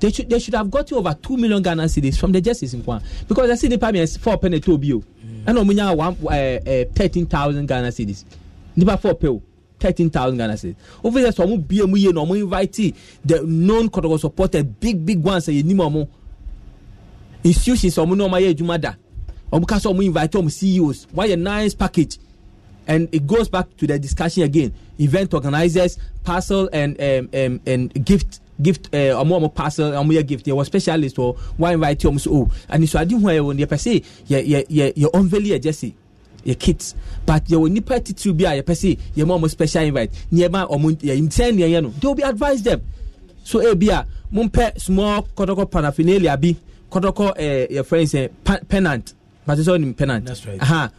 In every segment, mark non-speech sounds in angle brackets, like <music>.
They should they should have got you over two million Ghana cedis from the justice in Kwan because I see the payment is four penny to bio. Mm. I know munya one uh, eh, thirteen thousand Ghana cedis. Nipa four pill. 13,000 Ghana cedis. Over there, so I'm you know, I'm invite the known Kotoko supporter, big, big ones, Say, you know, institutions, so I'm no, my Jumada. I'm I'm invite them CEOs. Why a nice package? and it goes back to the discussion again event organizers parcel and um, um, and gift gift ɛɛ ɔmo ɔmo parcel ɔmo yɛ gift yɛ wɔ specialist wɔ wɔn invite ɔmo so o oh, anisoade ho a yɛ wɔ yɛ pɛ se yɛ yɛ yɛ yɛ unveil yɛ jɛsi yɛ kit but yɛ wɔ nipa titiri bi a yɛ pɛ se yɛ mo ɔmo special invite nneɛma ɔmo yɛ nsɛn nea yɛ no they will be advise them so ebi eh, a mo mpɛ small kɔtɔkɔ paraphernalia bi kɔtɔkɔ ɛɛ yɛ fɛn sɛ pa pennant pàṣẹ sọ ni pennant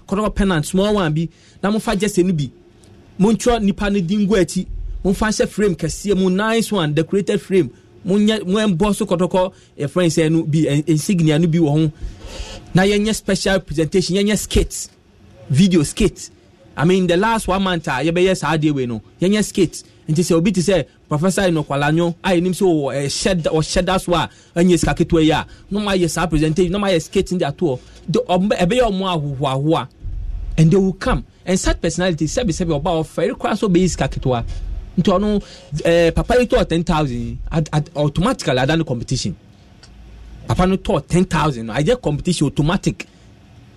kɔtɔkɔ pennant small one bi na mo fa jɛsɛ ni bi mo ntwɛ nipa ni di ngu akyi momfa hyɛ frame kɛseɛ mu nice one decorated frame monyɛ moɛmbɔ so kɔtɔkɔ yɛfrɛ sɛ no bi insignia no bi wɔ ho na yɛnyɛ special presentation yɛnyɛ skit video skit i mean the last one month a yɛbɛyɛ saa adeɛ wei no yɛnyɛ skit nti sɛ obi te sɛ professor inokwalanyo a yɛnim sɛ ɔhyɛ ɔhyɛ da so a ɛnyɛ sika ketewa yi a na ɔmo ayɛ saa presentation na ɔmo ayɛ skit de ato hɔ ɛbɛyɛ ɔmo ahohoahoa and they will come and such personality sɛbisɛbi ɔba ɔfɛ ɛrekora so ɔbɛyɛ sika ketewa nti ɔno ɛɛ eh, papa yi tɔɔ ten thousand automatically ada no competition papa no tɔɔ ten thousand no ayɛ competition automatic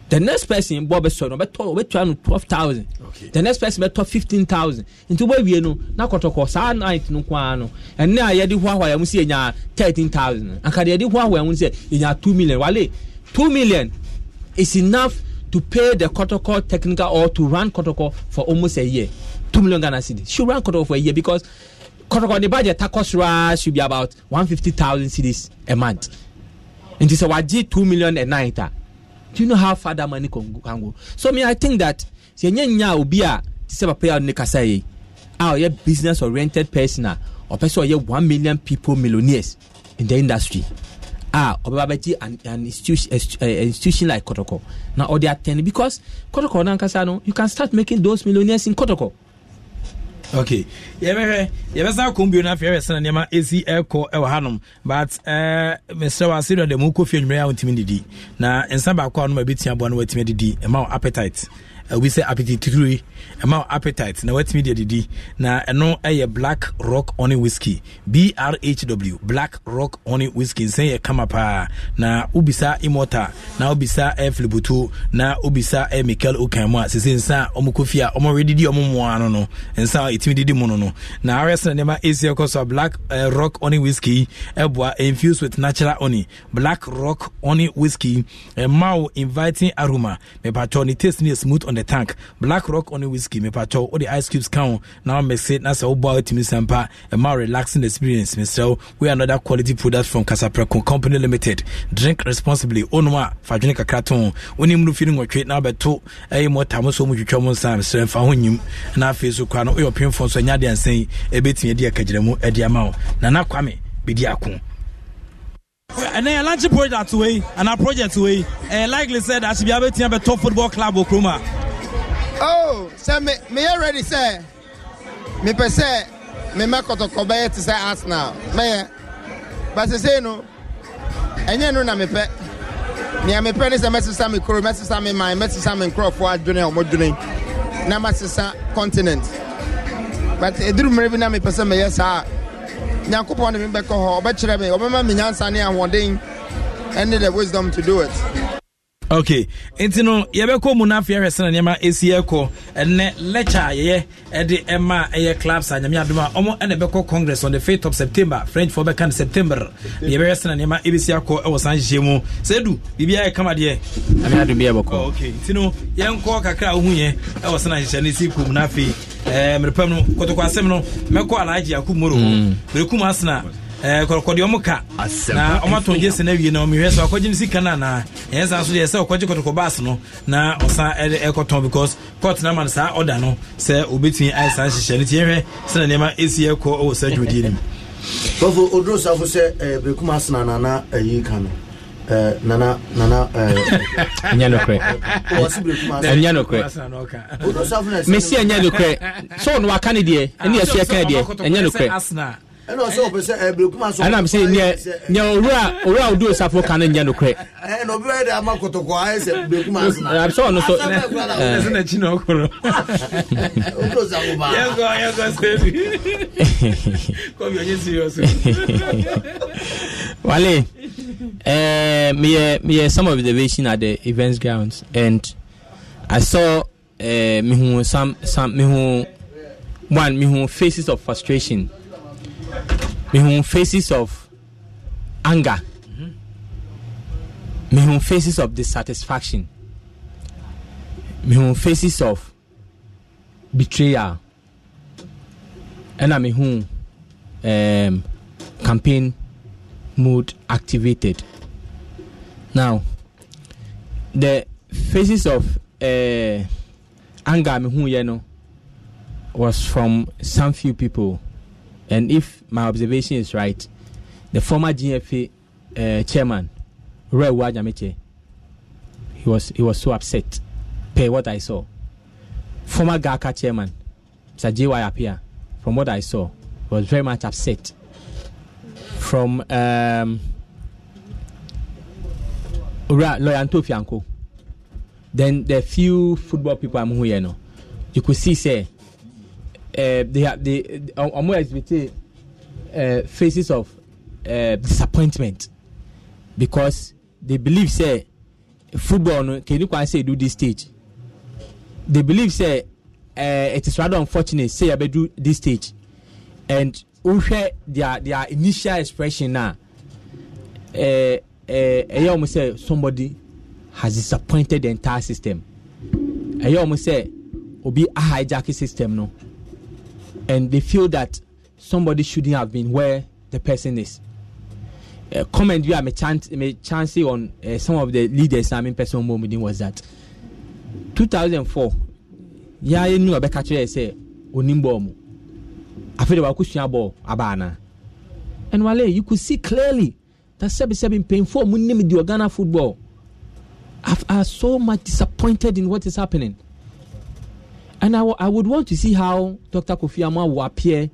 the next person bɔ bɛ sɔrɔ no bɛ tɔ bɛ tɔ no twelve thousand the next person bɛ tɔ fifteen thousand nti bɛ wie no na kɔtɔkɔ saa night no kɔ ano ɛnna a yɛde hoahoa yɛn mo si yɛnya thirteen thousand akadi yɛde hoahoa yɛn mo si yɛnya two million wale two million is enough to pay the kɔtɔkɔ technical or to run kɔtɔkɔ for almost a year two million Ghana cedis. She ran cut off for a year because Kotoko off on the budget takos takosra should be about one fifty thousand cedis a month. And she said, "Waji two million a night." Ah? Do you know how far that money can go? So me, I think that sɛ nyɛ nya obi a sɛ papa yi a ne kasa yi a ɔyɛ business oriented person Or person sɛ ɔyɛ one million people millionaires in the industry Ah, ɔbɛba bɛgye an an institution uh, institution like kɔtɔkɔ they ɔde atɛn because kɔtɔkɔ nankasa no you can start making those millionaires in Kotoko okay yɛbɛhwɛ yɛbɛsan kɔn bio no afei yɛbɛsana nneɛma ɛsi ɛkɔ ɛwɔ hanom but eh, mesrɛ w asedɔ dɛ mu kɔfie anwumerɛ a wontumi didi na nsa baako a wonom a bɛtumi aboa no woatumi adidi ɛma wo appetite Eh, we say appetite three eh, ɛma appetite na watumi deɛ didi na ɛno ɛyɛ eh, black rock honey whiskey brhw black rock honey whiskey nsɛn yɛ kama paa na wobisa imota na wobisa ɛ filibutu na wobisa ɛ michael okan mu a sese nsa a ɔmo kofi a ɔmo redidi ɔmo mmoa no no nsa a ɛtumi didi mu no no na awerɛsɛ na nneɛma ɛsi ɛkɔ so a black uh, rock honey whiskey ɛboa infused with natural honey black rock honey whiskey ɛma wo inviting aroma mepatɔ ne taste ne smooth on the ne tank black rock ɔne whisky mepatɔ wode ice cubes ka wo na wamɛse na sɛ woboa wotumi sa mpa ɛma relaxing experience mesrɛ wo oh, we another quality product from casaprɛco company limited drink responsibly onom a fadwene kakra to wonim no fi no nwɔtwe na wobɛto ɛyɛ mɔta mo so motwitwa mo nsa mesrɛ mfa ho nyim na afei so koraa no woyɛ ɔpemfo nso ɛnyɛ adeɛ ansɛn ɛbɛtumi e adi akagyinamu adi e ama wo nana kwame bɛdi ako And then yɛ lunch project way, and our project eh, said ɛyɛ likely be able to have a top football club wɔ kurom oh so me meyɛ me go to Kobe to say bɛyɛ te sɛ arsenal But I say no ɛnyɛ no na mepɛ nea mepɛ ne sɛ mɛsesa me kuro mɛsesa I? man mɛsesa me nkurɔfoɔ adwene a ɔmɔdwene na masesa continent but ɛduru mmerɛ bi know me, sɛ me, yes, I nyankopɔn de me bɛkɔ hɔ ɔbɛkyerɛ me ɔbɛma me nyansa ne ahoɔden ɛne the wisdom to do it okay nti no yɛbɛkɔ mu no afei ahwɛ sena nneɛma ɛsi ɛkɔ ɛnɛ lecture a yɛyɛ ɛde ɛma ɛyɛ clubs a nyame adom a ɔmo ɛna ɛbɛkɔ congress on the 5th of september frenchfoɔ bɛka no september na yɛbɛhwɛ sena nneɛma ɛbɛsi akɔ ɛwɔ san hyehyɛ mu sɛ du biribia yɛ kama deɛ okay nti no yɛnkɔ kakra a wohuyɛ ɛwɔ sena nhyehyɛ no si kɔ mu no afei mmerepam no kɔtɔkɔ asɛm no mɛkɔ alaagye akomoro ho mm. merekum asena Eh, kɔkɔdeɛ ɔmo ka na ɔmo ato gye sɛ n'awie na ɔmo hwɛ sɛ ɔkɔgye ne sika na na yɛn san so sɛ ɔkɔgye kɔtɔkɔ no na ɔsan ɛde ɛkɔtɔn because court na ama no saa ɔda no sɛ obetumi ayɛ ti na nneɛma esi ɛkɔ ɛwɔ saa dwumadie mu. <laughs> oduro safo sɛ eh, ɛɛ nana ɛyi eh, kan no. nana nana ɛnyɛ <laughs> nokorɛ ɛnyɛ nokorɛ mesi <laughs> ɛna ɔsɛ ɔpɛ sɛ ɛbrekuma so ɛnam sɛ neɛ neɛ owura owura odu osafo ka no nyɛ nokorɛ ɛna obi ayɛ dɛ ama kotoko ayɛ sɛ brekuma asena abisɛ ɔno so ɛsɛ n'akyi na ɔkoro owura osafo baa yɛnkɔ yɛnkɔ sɛbi kɔbi ɔnyɛ serious wale ɛɛ meyɛ meyɛ some observation at the events grounds and i saw ɛɛ uh, mihu some some mihu one mihu faces of frustration mehu faces of anger mehu faces of dissatisfaction mehu faces of betrayal ɛna mehu um, campaign mood activated now the faces of uh, anger mehu yɛ no was from some few people. And if my observation is right, the former GFA uh, chairman, Ray Wajamiche, he was he was so upset per what I saw. Former GAKA chairman, Mr. J.Y. Apia, from what I saw, was very much upset. From um, Loyanto Fianco, then the few football people I'm here, you, know, you could see, say, Eh, they are the ọmọ exhibit uh, faces of uh, disappointment because they believe say football no kenny kwan say do this stage they believe say uh, it is rather unfortunate say abe do this stage and wohwɛ their their initial expression na ɛyɛ wɔn sɛ somebody has disappointed the entire system ɛyɛ will be a hijacking system no and they feel that somebody shouldn't have been where the person is. Uh, comment you have a chance, a chance on uh, some of the leaders. I mean, person moment was that 2004. Yeah, you know, a better say Onimbomu. I feel about question about Abana. And Wale, you could see clearly that Sebi Sebi painful, Munim, the Ghana football. I are so much disappointed in what is happening. And I, w- I would want to see how Dr. Kofi Annan will appear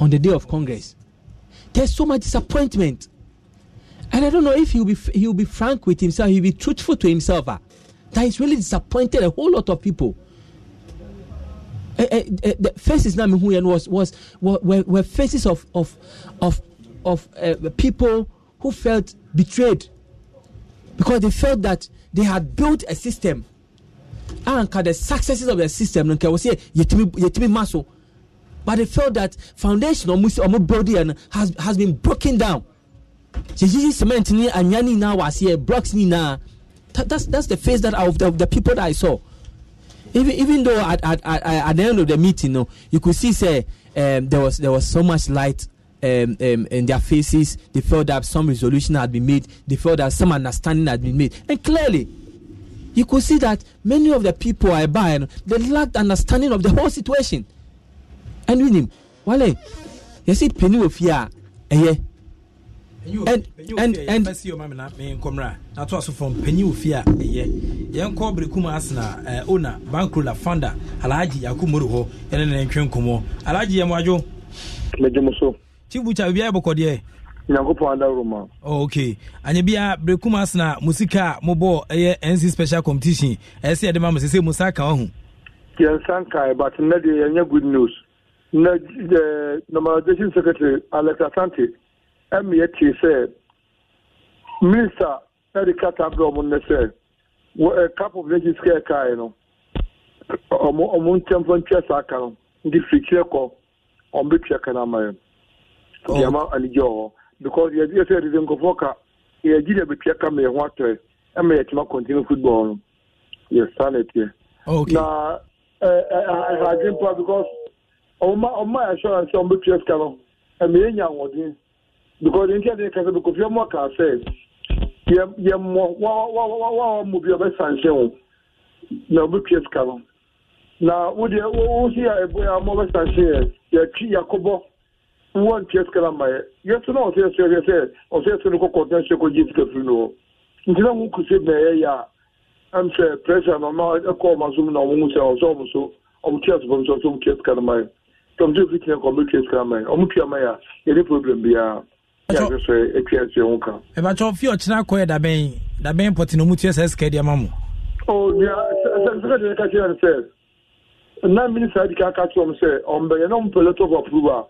on the day of Congress. There's so much disappointment. And I don't know if he'll be, f- he'll be frank with himself, he'll be truthful to himself. Uh, that he's really disappointed a whole lot of people. Uh, uh, the faces now was, was were, were faces of of of of people who felt betrayed because they felt that they had built a system anka the successes of the system no nka wɔ sɛ yɛtumi ma so but they felt that foundation ɔmo ɔmo building has has been broken down yɛyiyi cement ni anya ni na wɔ aseɛ eh, blocks ni na that, that's that's the face that of the, the people that I saw even even though at at at, at the end of the meeting no you could see say um, there was there was so much light. Um, um, in their faces, they felt that some resolution had been made. They felt that some understanding had been made, and clearly, you could see that many of the people I buy, they lacked understanding of the whole situation. And with him, Wale, you see, penny of fear, eh? And and and see your mamma me comra. That was from Penny Ufia, a eh, year. Young Cobri Kumasna, eh, owner, bankrupt founder, Alaji Akumuru, and then Kumo, Alaji Amajo. Mejumoso. Chibucha, we are Bokodia nyankopɔn adaworo ma oh, ok anyɛ bia berekum asena mo sika a mobɔɔ ɛyɛ nc special competition ɛɛ sɛ yɛde ma mo sɛ sɛ mu sa ka wahu yɛnsa nkae but nnɛ deɛ yɛnyɛ good news na eh, normalization secretary alex asante ɛme yɛtee sɛ minister na de kata berɛ ɔmo nnɛ sɛ eh, cap of nations ka ɛkae no ɔmo ɔmo ntɛmfa ntwa saa ka no nti firikyerɛ kɔ ɔmo bɛtua ka no ama yɛ deɛma oh. anigye wɔ hɔ because yɛdi yɛ sɛ yɛde nkɔfoɔ ka yɛgyi na bɛtua ka ma yɛ ho atɔɛ ɛma yɛtuma continue football no yɛ saa na ɛteɛ na ɛhadwen pa because ɔma ɔma assurance sɛ ɔmbɛtua sika no ɛma yɛnya ahoɔden because nti ɛde kasa bɛ kofi ɔmɔ kaa sɛ yɛ yɛ mmɔ wa wa wa wa mu bi ɔbɛsa nhyɛn o na ɔbɛtua sika no na wodeɛ wo wo si a ɛbɔ yɛ amɔ ɔbɛsa nhyɛn yɛ yɛtwi yɛkɔbɔ wọn tiɛ sikɛ la ma yɛ yɛsɛ na ɔsɛ yɛsɛ yɛsɛ ɔsɛ yɛsɛ ni ko kɔntɛn se ko ji sikɛ firi no ntina ŋun kusi bɛɛ yɛ e ya ɛn fɛ pɛrɛsɛ na ɔma ɛkɔ ɔma so mu na ɔmo ŋusɛ ɔsɛ ɔmo so ɔmo tiɛ sɔfɔ mi sɔ ɔsɛ ɔmo tiɛ sikɛ la ma yɛ tɔm tí o fi tiɛ kɔ ɔmo tiɛ sikɛ la ma yɛ ɔmo tiɛ ma yɛ e yɛ ni problem bi ya yɛ sɛ ɛtiɛ sɛ ŋun kan. ɛbàtɔ fi ɔkyinna kɔ yɛ dabɛn dabɛn pɔtɛ na ɔmo tiɛ e sɛ sikɛ diɛ ma mu. o deɛ sɛ sikɛ diɛ ka kyerɛ sɛ nine minutes adi ka ka kyerɛ ɔmo sɛ ɔmo bɛ yɛ n'ɔmo pɛlɛ tɔ fɔ approval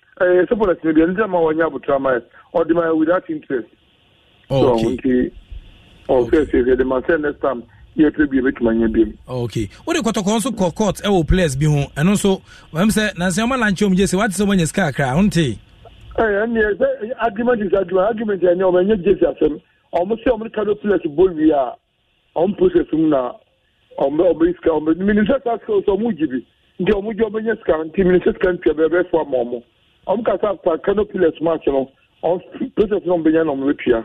ɛyɛ eh, sɛ pɔlɛtini deɛ nti ama wɔnyɛ abotoa ma ɔde ma without interest so nti ɔsɛsɛ yɛde ma sɛ next time yɛpɛ bi bɛtumi anya biom ok wode kɔtɔkɔɔ nso kɔ court ɛwɔ e players bi ho ɛno nso mam sɛ nansɛ ɔma lankyɛ mu gye sɛ wate sɛ wanya sika kakra ho nte ɛneɛ eh, sɛ argument is argument argument ɛneɛ ɔmanyɛ gyesi asɛm ɔmo sɛ ɔmo ka do players bɔ wie a ɔmo process mu um na ɔmobɛyi sika ɔmmenim sɛ saa sika wo sɛ ɔmo gye bi nti ɔmo gye ɔmɛnya sika nti mene sɛ sika ntua bɛbɛfoa ma ɔmo ɔmo kasa akpa canopy less march no ɔmo process no benya oh, na ɔmo betua.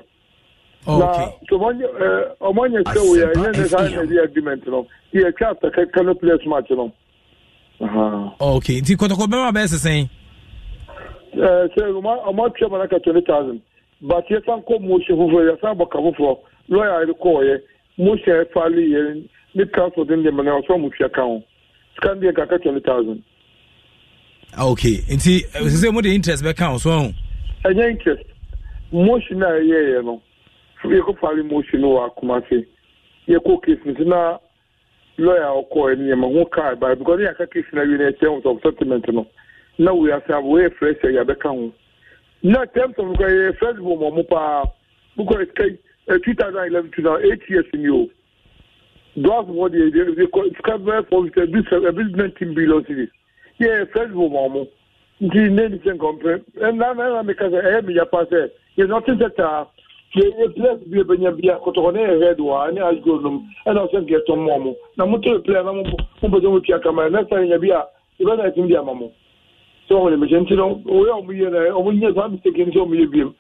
na so ɔmo nyɛ ɔmo eh, nyɛ sɛ o yɛ ɛnyɛ ne saa ɛnyɛ the agreement no yɛ twa after canopy less march no. ok nti kɔtɔkɔ bɛrɛ bɛyɛ sisan. Eh, sɛ ɔmo ɔmo atwa mana twenty thousand but yɛ san kɔ motion foforɔ yɛ san bɔ ka foforɔ lɔya yɛ kɔɔ yɛ motion yɛ faali yɛ ne transport ne nneɛma na ɔsɔ mo tia kan o scan deɛ twenty thousand okay nti sɛ mode interest bɛka wo so ahu ɛnyɛ interest motion a ɛyɛeɛ no yɛkɔ fare motion no wɔ akoma se yɛkɔ case no nti na lɔya ɔkɔɛ no yɛma ho kaa ba because yɛaka case no awie no ɛkyɛ ho sɛ settlement no na wei ase a wɔyɛ fresh a yɛabɛka ho na terms of nkɔ yɛyɛ fresh bɔ mɔmo paa bokɔ ɛkai 2011 to now eight years ni o dɔɔso wɔ deɛ ɛbi sika bɛɛ fɔ bi sɛ ɛbi ɛbi nineteen billion series yɛ facebook wɔn mo nti ne ni sɛ nkɔmpɛ ɛnna ɛnna mi ka sɛ ɛyɛ mi yapa sɛ yɛ nɔti sɛ taa yɛ yɛ players bi ebenya bia kɔtɔkɔ ne yɛ red wa ne asgo nom ɛnna ɔsɛ nkɛ tɔn mu na mo to player na mo mo bɛ sɛ mo tia kama ɛnna sɛ yɛ bi a ɛbɛ na ɛtum di ama mo sɛ wɔn de mehyɛ nti no oyɛ ɔmo yɛ na ɔmo nyɛ yɛ biem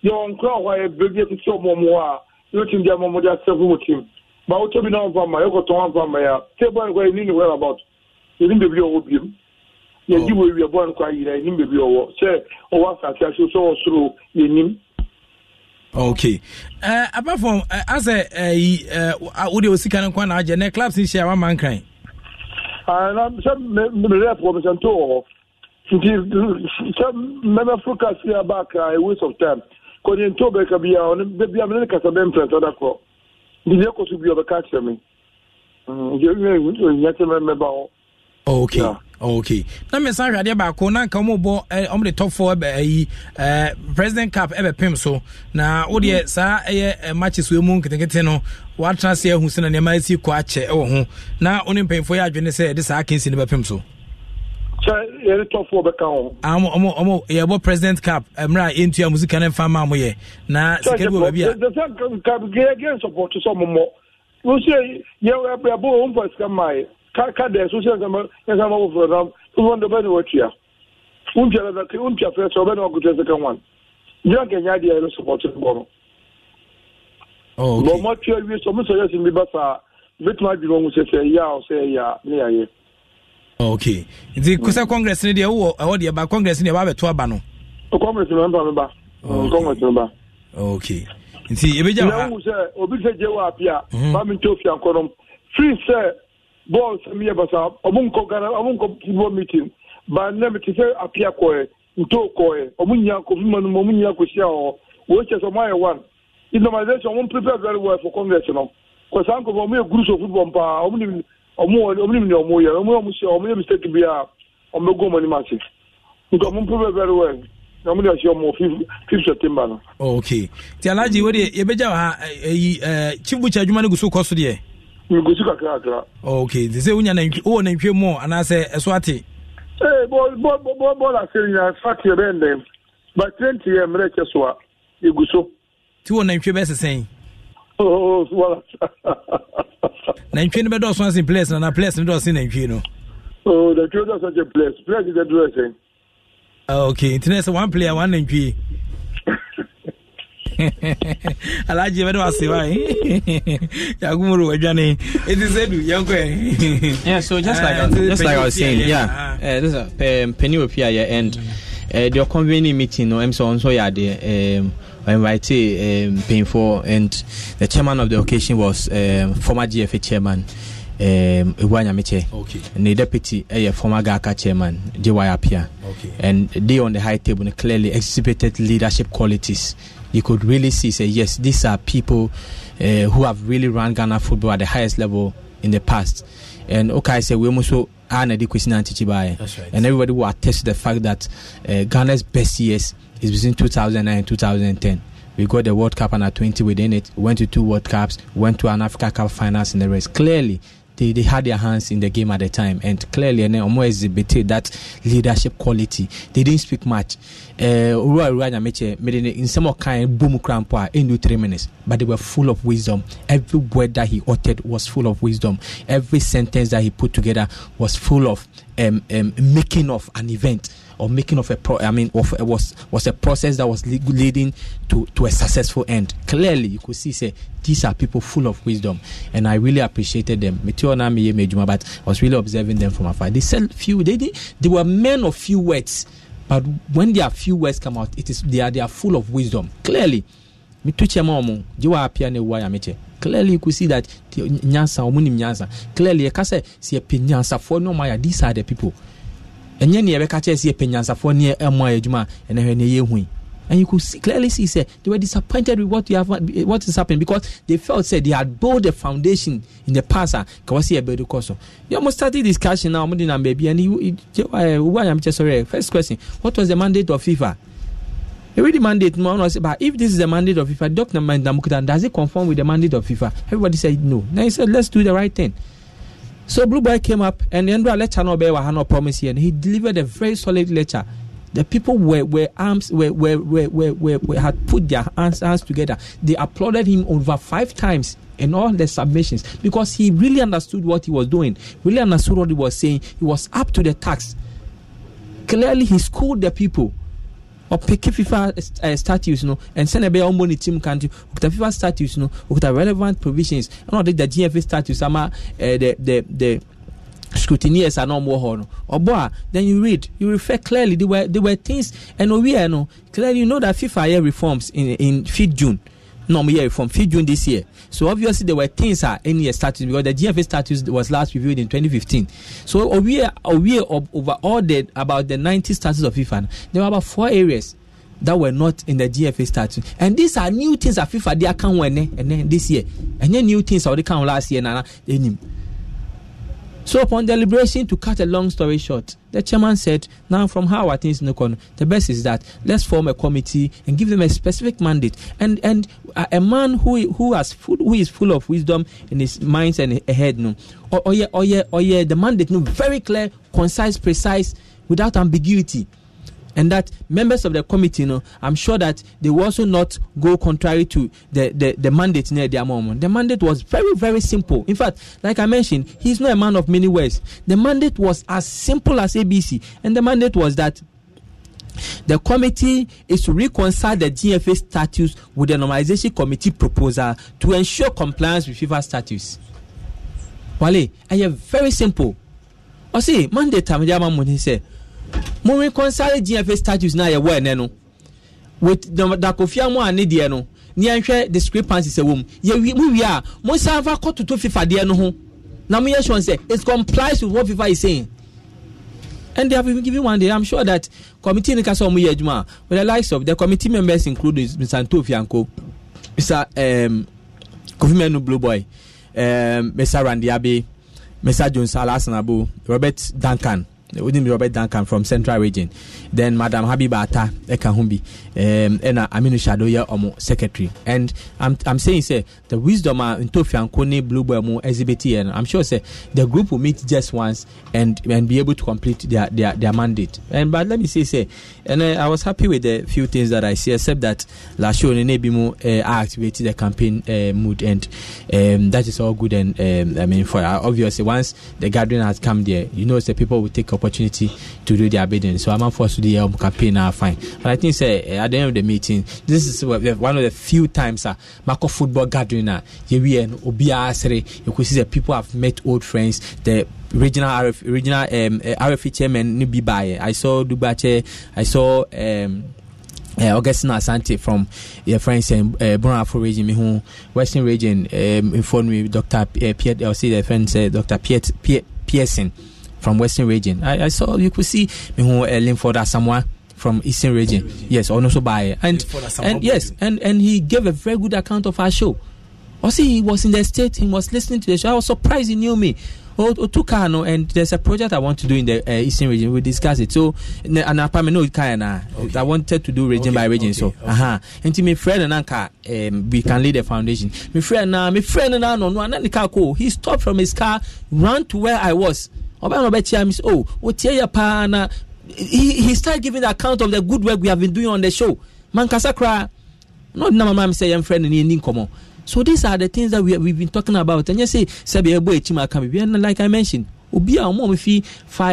yɛ wɔn kora hɔ a yɛ bɛ bi ɛsisi ma wotɔ bi n'anw fa ma e yɛ kɔtɔn anw ma ya te bɔ nin ye ni nin wɛrɛ about yɛ ni bɛbi ɔwɔ bi mu ji wo bɔ nin kɔ yira yɛ ni bɛbi ɔwɔ sɛ ɔwɔ asase aso sɛ ɔsoro yɛ nim. okay uh, apart from uh, eh, asɛ ɛyi eh, uh, wode uh, osika no nkwa na agyɛ nɛ clubs nhyɛ a wama nkran na sɛ merɛ pɔ mesɛnto wɔ hɔ nti sɛ mɛmɛforo kase aba kra a waste of time kɔnyɛnto bɛka bia ɔno bia mene ne kasa bɛmprɛsɛ da korɔ bibi ekɔ so bi ɔbɛka kyerɛ me nti ewia ewu nti onyina kyerɛ mɛ mɛba hɔ. yeah. okay na mmesa ahwadeɛ baako na nka ɔmo bɔ ɔmo de tɔfo eh, ɛbɛ eh, eh, president cap ɛbɛ so na o deɛ saa ɛyɛ e matches wɔ mu nketenkete no se na nneɛma esi kɔ akyɛ ɛwɔ ho na ɔne mpanyinfoɔ yɛ adwene sɛ ɛde saa akansi ne bɛ pem so. Ah, yɛbɔ president cap eh, mmerɛ a yɛntua mu sika no mfa ma moyɛ na sika bi wɔ baabi ayɛbɔ sika maɛ ka dɛ so sɛ ɛsama woforɔ nam wofɔndɛ bɛne watua wontua fɛ sɛ wobɛne wakotua sika wan gyina nkɛnya deɛ ɛno supɔto bɔ no bɔ mɔtua wie sɛ ɔmesɛ yɛsim bi ba saa bɛtumi adwene ɔhu sɛ sɛ ɛyɛ a ɔsɛ ɛyɛ a ne yɛayɛ Oh, ok nti mm. kusa congress ni deɛ wowɔ ɛwɔ deɛ ba congress ni deɛ wabɛto aba no. congress mi mba mi ba congress mi ba. ok nti ebegya wa ha. n'ahu sɛ obi sɛ jɛ wa apia maami mhm. tó fi akɔnɔ free sɛ bɔɔl sɛmi yɛ basa ɔmu nkɔ ghana ɔmu nkɔ football meeting ba nɛm ti sɛ apia kɔɛ ntó kɔɛ ɔmu nyina kɔ fima nu mu ɔmu nyina kɔ si awɔ wɔn kyɛ sɛ ɔmu ayɛ one normalization ɔmu prepare very well for congress no kɔsa nkɔfɔ ɔmu yɛ groups of football paa ɔmu ni ọmụ ọmụnim na ọmụ ya ọmụ ọmụ sị ọmụ yẹ mistake bi a ọmụ ego ọmụ anim ase nke ọmụ mpụ very well na ọmụ de ọsị ọmụ fifth september no. Oh, ok ti alhaji wo de yabegya wa ha eh, eyi eh, eh, chief butcher adwuma no gu so kɔ so deɛ. ngusi kakra kakra. Oh, ok nti sɛ wonya nantwi wowɔ nantwie mu anaasɛ ɛso ate. ee bɔ bɔ bɔ bɔɔla ase nyina fati yɛ bɛ ndɛm ba twenty yɛ mmerɛ kyɛ so a egu so. ti wɔ nantwie bɛ sesɛn. <laughs> nantwie no bɛdɔɔso ase place nana place no dɔɔse nantwie no nantwie dɔɔso ase place place no dɔɔso ase ah, ok nti na sɛ one player one nantwie <laughs> alhaji bɛde wase wa eh? <laughs> yakumuru wadwane ɛti sɛ du yɛnkɔ yeah so just like ah, just like i was saying yeah uh, this is uh, eh, penny opia yɛ end uh, the convening meeting no ɛm sɛ ɔnso yɛ adeɛ I invited um, Painful, and the chairman of the occasion was um, former GFA chairman. Um, okay. And the deputy, a uh, eh, former GAKA chairman, JY Apia. Okay. And they on the high table clearly exhibited leadership qualities. You could really see, say, yes, these are people uh, who have really run Ghana football at the highest level in the past. And okay, say, we must and everybody will attest to the fact that uh, Ghana's best years is between 2009 and 2010. We got the World Cup under 20 within it, went to two World Cups, went to an Africa Cup finals in the race. Clearly, they, they had their hands in the game at the time, and clearly, and Omo exhibited that leadership quality. They didn't speak much. Uh, Uruwa in some kind boom cramp in three minutes, but they were full of wisdom. Every word that he uttered was full of wisdom. Every sentence that he put together was full of um, um, making of an event or making of a pro- I mean, of, was was a process that was leading to to a successful end. Clearly, you could see say these are people full of wisdom, and I really appreciated them. But I was really observing them from afar. They said few. They did, they were men of few words, but when their few words come out, it is they are they are full of wisdom. Clearly, me chema omo. You are clearly you could see that nyansa omunim nyansa clearly ɛka sɛ sɛ yɛpɛ nyansafoɔ ne ɔma these are the people ɛnyɛ neɛ yɛbɛka kyerɛ sɛ yɛpɛ nyansafoɔ ne ɛmoa adwuma ɛnɛ hwɛ neɛ yɛhui and you could see, clearly see say they were disappointed with what you have what is happening because they felt say they had built a foundation in the past ah, kawasi ebedu koso you almost started discussion now amudi na baby and you why i'm just sorry first question what was the mandate of fifa you mandate no one was but if this is the mandate of fifa doctor mandamukutan does it conform with the mandate of fifa everybody said no Now he said let's do the right thing So Blue Boy came up and the Endra lecture no bear no promise here and he delivered a very solid lecture. The people were, were arms were, were, were, were, were had put their hands, hands together. They applauded him over five times in all the submissions because he really understood what he was doing, really understood what he was saying. He was up to the task. Clearly he schooled the people. ɔpeke fifa uh, eh, statutes no ɛnsɛn ɛbɛyɛ ɔmbɔ ne team kan ti okuta fifa statutes no okuta relevant provisions ɛna ɔde da gfa status ama ɛɛ eh, the the the. scrutineers and ọmọ họ no ọbọ then you read you refer clearly there were there were things and owie no clearly you know that fifa yẹ reforms in in fifth june. no more here from 5th June this year. So obviously there were things are uh, in your status because the GFA status was last reviewed in 2015. So we are a over all the about the 90 status of FIFA, there were about four areas that were not in the GFA status, And these are new things that FIFA they account when eh, eh, and then this year. And then new things are they last year. Nana, so upon deliberation, to cut a long story short, the chairman said, "Now from how are things look on, The best is that let's form a committee and give them a specific mandate. And and a, uh, a man who who has full, who is full of wisdom in his mind and head, no, or oh yeah, oh yeah, oh yeah, the mandate no very clear, concise, precise, without ambiguity." and that members of the committee, you know, I'm sure that they will also not go contrary to the, the, the mandate near their moment. The mandate was very, very simple. In fact, like I mentioned, he's not a man of many words. The mandate was as simple as ABC, and the mandate was that the committee is to reconcile the GFA status with the normalization committee proposal to ensure compliance with FIFA status. Wale, I am very simple. I see, mandate time, mo reconcile gfa status na yɛwɔ ɛnɛ no with dakofia mu a ne deɛ no ne yɛnhwɛ discrepancies ɛwɔ mu yɛwi mu wie a mo san fa kɔtoto fifa deɛ no ho na mo yɛ sure sɛ it complies with what fifa is saying and they have been given one day i'm sure that committee nika sɛ ɔmo yɛ adwuma with the likes of the committee members include mr ntofianko mr um, kofi blue boy um, mr randiabe mr jones alasanabo robert duncan. Odin Robert Duncan from Central Region. Then Madam Habibata Ekahumbi um and Aminu Shadoya Omo Secretary. And I'm I'm saying say the wisdom in Tofian Kone Bluebell Mo exhibit and I'm sure say the group will meet just once and and be able to complete their their, their mandate. And but let me say say and uh, I was happy with the few things that I see except that last year Nebimo uh, I activated the campaign uh, mood and um, that is all good and um, I mean for uh, obviously once the gathering has come there you know the people will take a opportunity to do their bidding. So I'm not to the um, campaign now. fine. But I think say at the end of the meeting, this is one of the few times uh, Marco football gathering uh, na and you could see that people have met old friends. The regional RF, regional um, uh, RFE chairman Nibi Baye. I saw Dubache. I saw. Um, uh, Augustine Asante from your friends in uh, uh region, me who Western region um, informed me Dr. Pierre. I'll see the friend uh, Dr. Pierre Pearson. from Western Region. I, I saw you could see Mihu uh, Linford Asamoah from Eastern Region. region. Yes, or also by and and yes, and and he gave a very good account of our show. Also, he was in the state. He was listening to the show. I was surprised he knew me. Oh, oh, Otukano, and there's a project I want to do in the uh, Eastern Region. We discuss it. So, and apartment no okay. I wanted to do region okay. by region. Okay. So, okay. uh-huh. And to my friend and anka, um, we can lead the foundation. My friend, uh, my friend and no, no, he stopped from his car, ran to where I was. ɔbɛn ɔbɛkyia mi o paa na he he start giving the account of the good work we have been doing on the show mankasa koraa na ɔdi na mama mi sɛ yɛn fɛ ne ni nkɔmɔ so these are the things that we we been talking about And sɛ sɛbi ɛbɔ ekyim aka mi bi like i mentioned obi a wɔn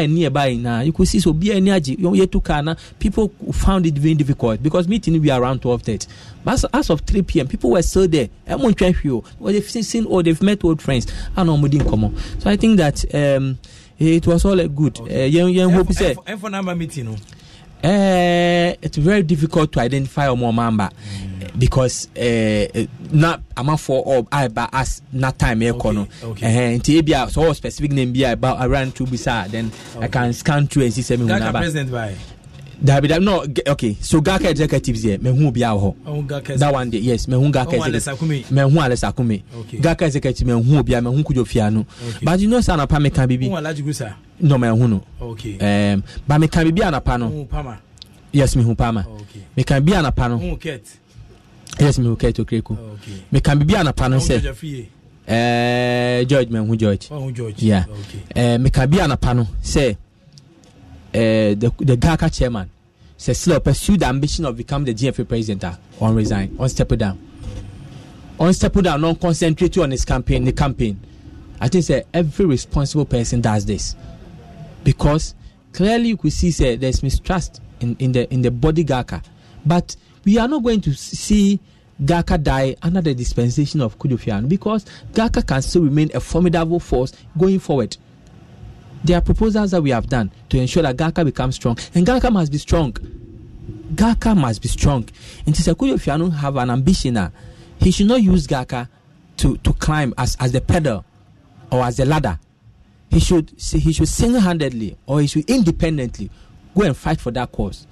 a nearby na you could see so obi a ɛni agye yɛ to car people found it very difficult because meeting be around twelve thirty but as of three pm people were still there ɛmo ntwɛn hwi o or they seen or they met old friends ɛna wɔn di nkɔmɔ so i think that. Um, it was all good eh, yẹn yẹn hope sẹ. ẹ fọ namba mi ti nu. it's very difficult to identify ọmọ mamba mm. because uh, na amafo ọ aba as na time ẹ kọ no nti eh, ebi a sọ wọ specific name bi a about around two bisa ah, then i can scan through and see sẹ mi hu naba. gaka president bye dabi dabi no okay so gaka executives yɛ mehu obi a hɔ that one day yes mehu gaka executives mehu alesa kume gaka executives mehu obi a mehu kujo fia no but you know say anapa meka bibi no mehu no um, but meka bibi anapa no yes mehu pama meka bibi anapa no yes mehu ket okreko meka bibi anapa no sɛ Uh, George eh, mehu George. Oh, George. Yeah. Okay. Uh, eh, meka bi anapa no sɛ Eh, the, Gaka GACA chairman says still pursue the ambition of becoming the GFA president ah, on resign, on step down. On step down, not concentrate on his campaign, the campaign. I think say, every responsible person does this. Because clearly you could see say, there's mistrust in, in the in the body GACA. But we are not going to see Gaka die under the dispensation of Kudufian because Gaka can still remain a formidable force going forward. there are proposals that we have done to ensure that GAKA becomes strong, and GAKA must be strong. GAKA must be strong. And Tisekuyo Fiano have an ambition. He should not use GAKA to, to climb as, as the pedal or as the ladder. He should he should single-handedly or he should independently go and fight for that cause.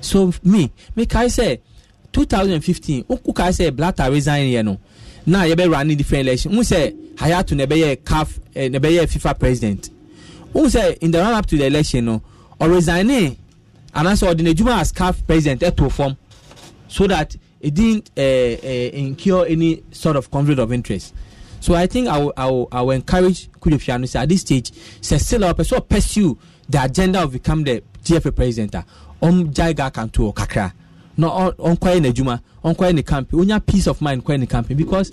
So me, me I say 2015, kai say Blatter resign here no. Now you be running different election. Who say Hayatu nebeye calf eh, nebeye FIFA president who say in the run up to the election no ọ resign anaasɛ ɔde n'adwuma as caf president eh, to form, so that it didn't uh, uh, incur any sort of conflict of interest so i think i will, I will, I will encourage kudepiano say at this stage sɛsila ɔpɛ sɛ pursue the agenda of become the gfa president a ah. ɔmgyae ga kanto kakra na ɔnkɔyɛ n'adwuma ɔnkɔyɛ ne campaign onya peace of mind nkɔyɛ ne campaign because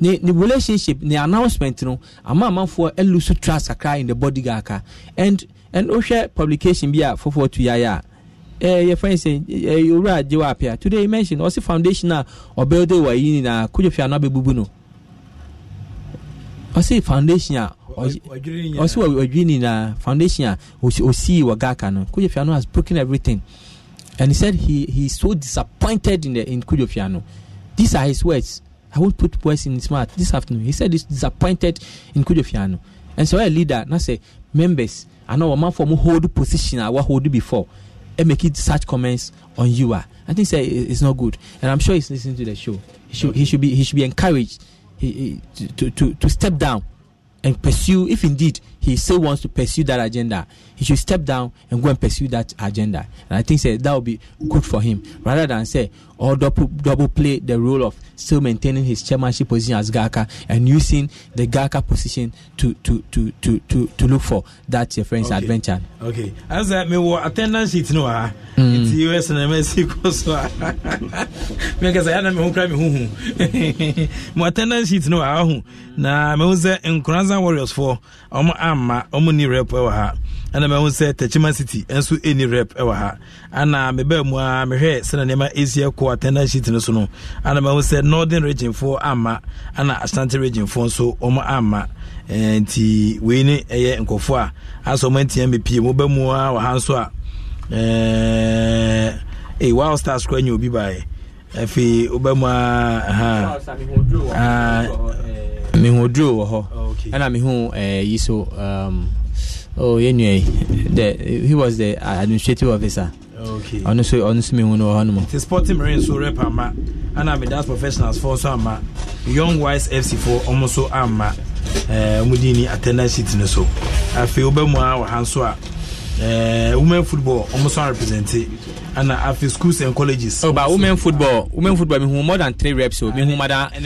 ne ne relationship ne announcement no ama amanfoɔ ɛlusu trust kakra in the body gaka and and wohwɛ publication bi a foforɔ tu yaya a ɛɛ yɛfɛn sɛ ɛɛ owura agye wa apia today you mention ɔsi foundation a ɔbɛn de wɔ yi nyinaa kojú fi anabɛ bubu no ɔsi foundation a ɔsi ɔdwiri nyinaa foundation a osi wɔ gaka no kojú fi ano has broken everything and he said he he is so disappointed in the in kojú fi ano these are his words. I won't put words in his mouth this afternoon. He said he's disappointed in Kujofiano. And so a leader now say members, I know a man from hold position I will hold before and make it such comments on you are. I think say it's not good. And I'm sure he's listening to the show. He should okay. he should be he should be encouraged he, he, to, to, to step down and pursue if indeed he still wants to pursue that agenda he should step down and go and pursue that agenda and i think say that would be good for him rather than say or double, double play the role of still maintaining his chairmanship position as Gaka and using the Gaka position to to to to to, to look for that your friend's okay. adventure. Okay. As I mean what attendance it no ah hmm. it's US and Mexico so because I am who cry me who What attendance it no ah na me say Nkranza Warriors for omo amma ah, omo ni repo eh, wa ha ah. ɛna mahu sɛ tachima city nso ɛni rep ɛwɔ ha ana mebaa mu a mehwɛ sɛna nneɛma ɛsi ɛkɔ attendance sheet no so no ana mahu sɛ northern regionfoɔ amma ana ashanti regionfoɔ nso ɔmo amma nti wei ne ɛyɛ nkɔfoɔ a asɛ ɔmo antia mepie mobaa mu a wɔ ha nso a ɛɛ eh, wild stars kora nyɛ obi baeɛ afei wobɛmu a mehu oduro wɔ hɔ ah, ɛna mehu eh, yi so um, oh anyway the he was the administrative officer okay Honestly, honestly, me, so mi hu no wɔ hɔ nom. ti sporting marines so rep ama ɛna mi dance professionals for so. ama young wise fc for almost so. ama ɛɛ eh, ɔmo di ni attendance sheet ni so afei ɔbɛ mu a wɔ ha a ɛɛ women football almost nso a represent and after schools and colleges. Oh, but women football, women football, me who more than three reps. Oh. Me who mada, me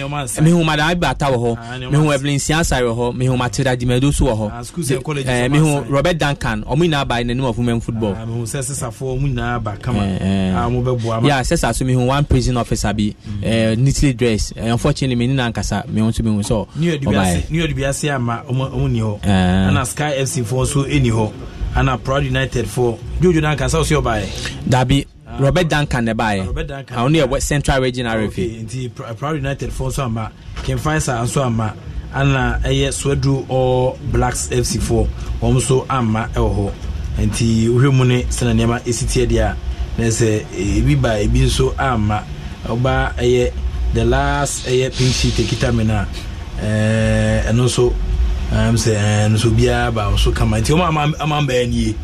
who mada iba ata wɔ me who Evelyn Siansa wɔ hɔ, me who Matilda Dimedo so wɔ hɔ. Schools and colleges. Me eh, who Robert Duncan, ɔmu nyinaa ba by the name of women football. Me who sɛ sisa fo ɔmu nyinaa ba kama. Ɔmu bɛ bu ama. Yeah, sisa so me who one prison officer be mm-hmm. eh, neatly dressed. Eh, unfortunately, me in nankasa, me want to be who so. New York Dubiase, New York Dubiase ama ɔmu ɔmu ni hɔ. Ɛna Sky FC fo so ɛni hɔ ana proud united for jojo duncan sọ si ọba yẹ. dabi robert Dankan duncan ẹ báyẹ àwọn ní ẹ central Region referee. okay nti eh, proud united for nso ama kemfaisa nso ama ana ɛyɛ Swedu or blacks fc for wɔn nso ama ɛwɔ hɔ nti wohwɛ mu ne sɛnɛ nneɛma esi tie deɛ a nɛsɛ eh, ebi ba ebi nso ama ɔba ɛyɛ the last ɛyɛ pink sheet ekita mi na ɛɛ ɛno nso am sɛ ɛn so biara ba so kama nti wɔn ama ama mbɛɛ nie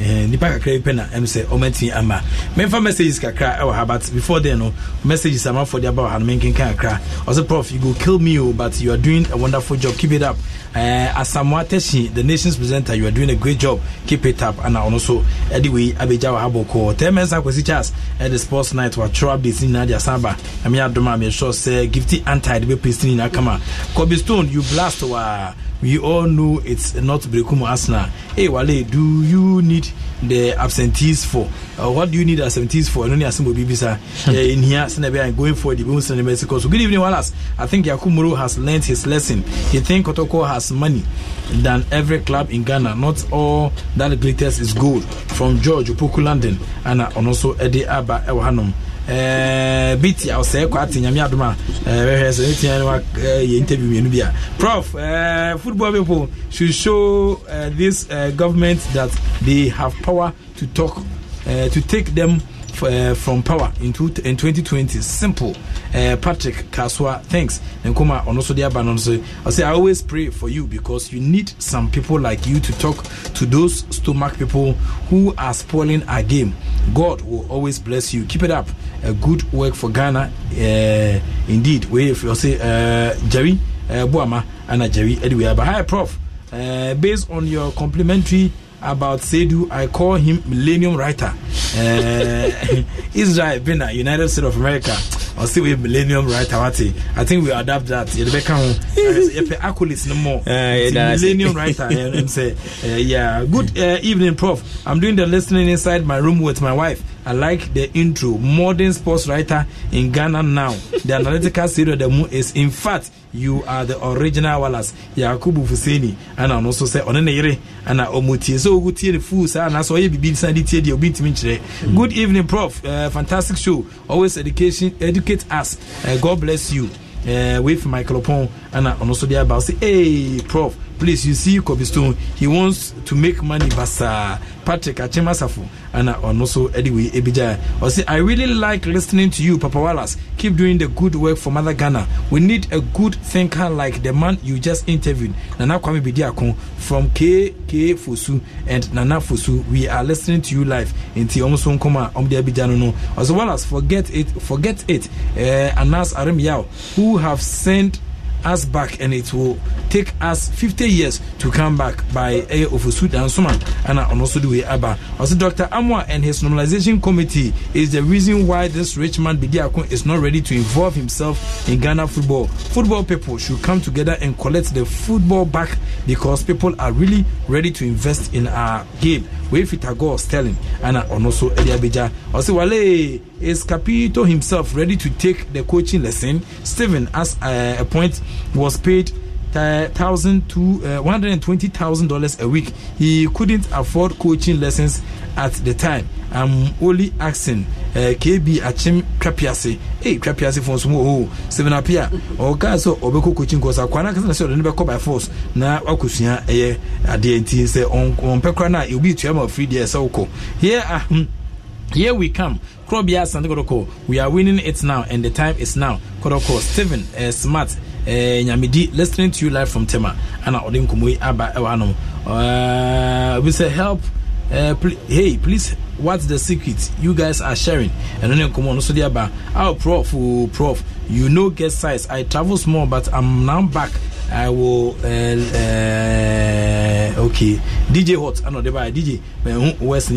ɛn nipa kakra yi pɛ na ɛm sɛ wɔn ti ama mɛnfa messages kakra ɛwɔ ha but before then no messages ama afɔ de aba wɔ ha no mɛnkenkan kakra ɔsɛ prof you go kill me o oh, but you are doing a wonderful job keep it up ɛɛ uh, asamoah tɛsi the nation's presenter you are doing a great job keep it up ɛna ɔno so ɛde wei abegya wɔ ha bɔ kɔɔ tɛn mɛnsa kwesi charles ɛde sports night wɔatwerɛ updates nyinaa de asan ba ɛmi adum a mɛ sure sɛ gifty anti de bɛ pesi nyinaa kama kobe stone you blast waa. Wow. we all know it's not Brekumu Arsenal. Hey, Wale, do you need the absentees for? Uh, what do you need absentees for? Noni Asimbo Bibisa hmm. in here, Senebi, and going for the Bimus and the So, good evening, Wallace. I think Yakumuru has learned his lesson. He think Kotoko has money than every club in Ghana. Not all that glitters is gold. From George Upuku London and, also Eddie Abba Ewahanum. bit a kɔ ate nyame adom a bɛhwɛ sɛ ɛtia no yɛ interview mmienu bi a prof eh, football people should show uh, this uh, government that they have power to talk uh, to take them Uh, from power in, two, in 2020. Simple. Uh, Patrick Kaswa, thanks. Nkuma I say I always pray for you because you need some people like you to talk to those stomach people who are spoiling our game. God will always bless you. Keep it up. a good work for Ghana eh, indeed we if you say eh, Jerry eh, Buama and Jerry anyway but hi prof based on your complimentary about Sedu, I call him Millennium Writer. Uh, <laughs> Israel Bina, United States of America. I see we Millennium Writer. I think we adapt that. You become <laughs> accolades no more. Ah, Millennium Writer. uh, yeah. Good uh, evening, Prof. I'm doing the listening inside my room with my wife. I like the intro. Modern sports writer in Ghana now. The analytical series of the moon is, in fact, you are the original Wallace. Yakubu Fuseni. And I also say, Onene Yere. And I omutie. So, good year, fools. And I saw you be sandy tear the obit Good evening, Prof. Uh, fantastic show. Always education, educate us. Uh, God bless you. Uh, with Michael Opon and uh, also the about say, hey, Prof, please, you see Kobe Stone. He wants to make money, but patrick ana so i really like listening to you papa wallace keep doing the good work for mother ghana we need a good thinker like the man you just interviewed nana kwame bidiako from kk fosu and nana fosu we are listening to you live nti ɔmo so nkɔm a ɔmo de abigya no wallace forget it forget it uh, anas arim who have sent us back and it will take us 50 years to come back by a of Sud and Suman and also the way Abba. Also, Dr. Amwa and his normalization committee is the reason why this rich man Bidiakon is not ready to involve himself in Ghana football. Football people should come together and collect the football back because people are really ready to invest in our game wefita god sterling ana ɔno so ɛde abɛgya ɔsɛ wale is capito himself ready to take the coaching lesson stephen as uh, a point was paid thousand to eh, one hundred twenty thousand dollars a week he couldn't afford coaching lessons at the time um, Oli Axon, uh, KB Achim Trapiase, eh, Trapiase for some oh, seven up here, or Caso, or Boko Coaching Cosa, Quana, and so never call by force. Now, Okusia, eh, at the NT, say on, on Pecrana, you'll be chairman of three years. So, here, ah, hmm. here we come. Krobia Santiago, we are winning it now, and the time is now. Kodoko, Steven, uh, Smart. Eh, nyamidi listening to you live from tema ana ɔde nkɔmmɔ yi aba ɛwɔ anom obi uh, sɛ help uh, eh, pl- hey please what's the secret you guys are sharing and then come on so dear bar oh prof oh, prof you know get size i travel small but i'm now back I will. Uh, uh, okay, DJ Hot. I know the by DJ. West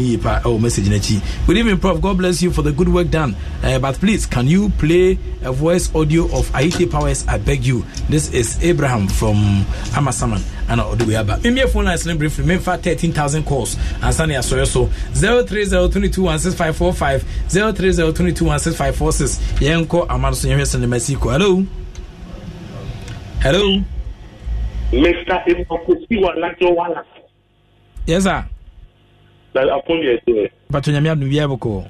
Oh, message in Good evening, Prof. God bless you for the good work done. Uh, but please, can you play a voice audio of Aite Powers? I beg you. This is Abraham from Amasaman. And I'll do it. me a phone line slim briefly. Maybe 13,000 calls. And Sunny Asoyo. So 03022165545. 030221656. Yenko Amanso Yemesan Mesiko. Hello. Hello. Mr. Ibokosi wa Lajo Wala. Yes, sir. That upon your day. But when you're new, you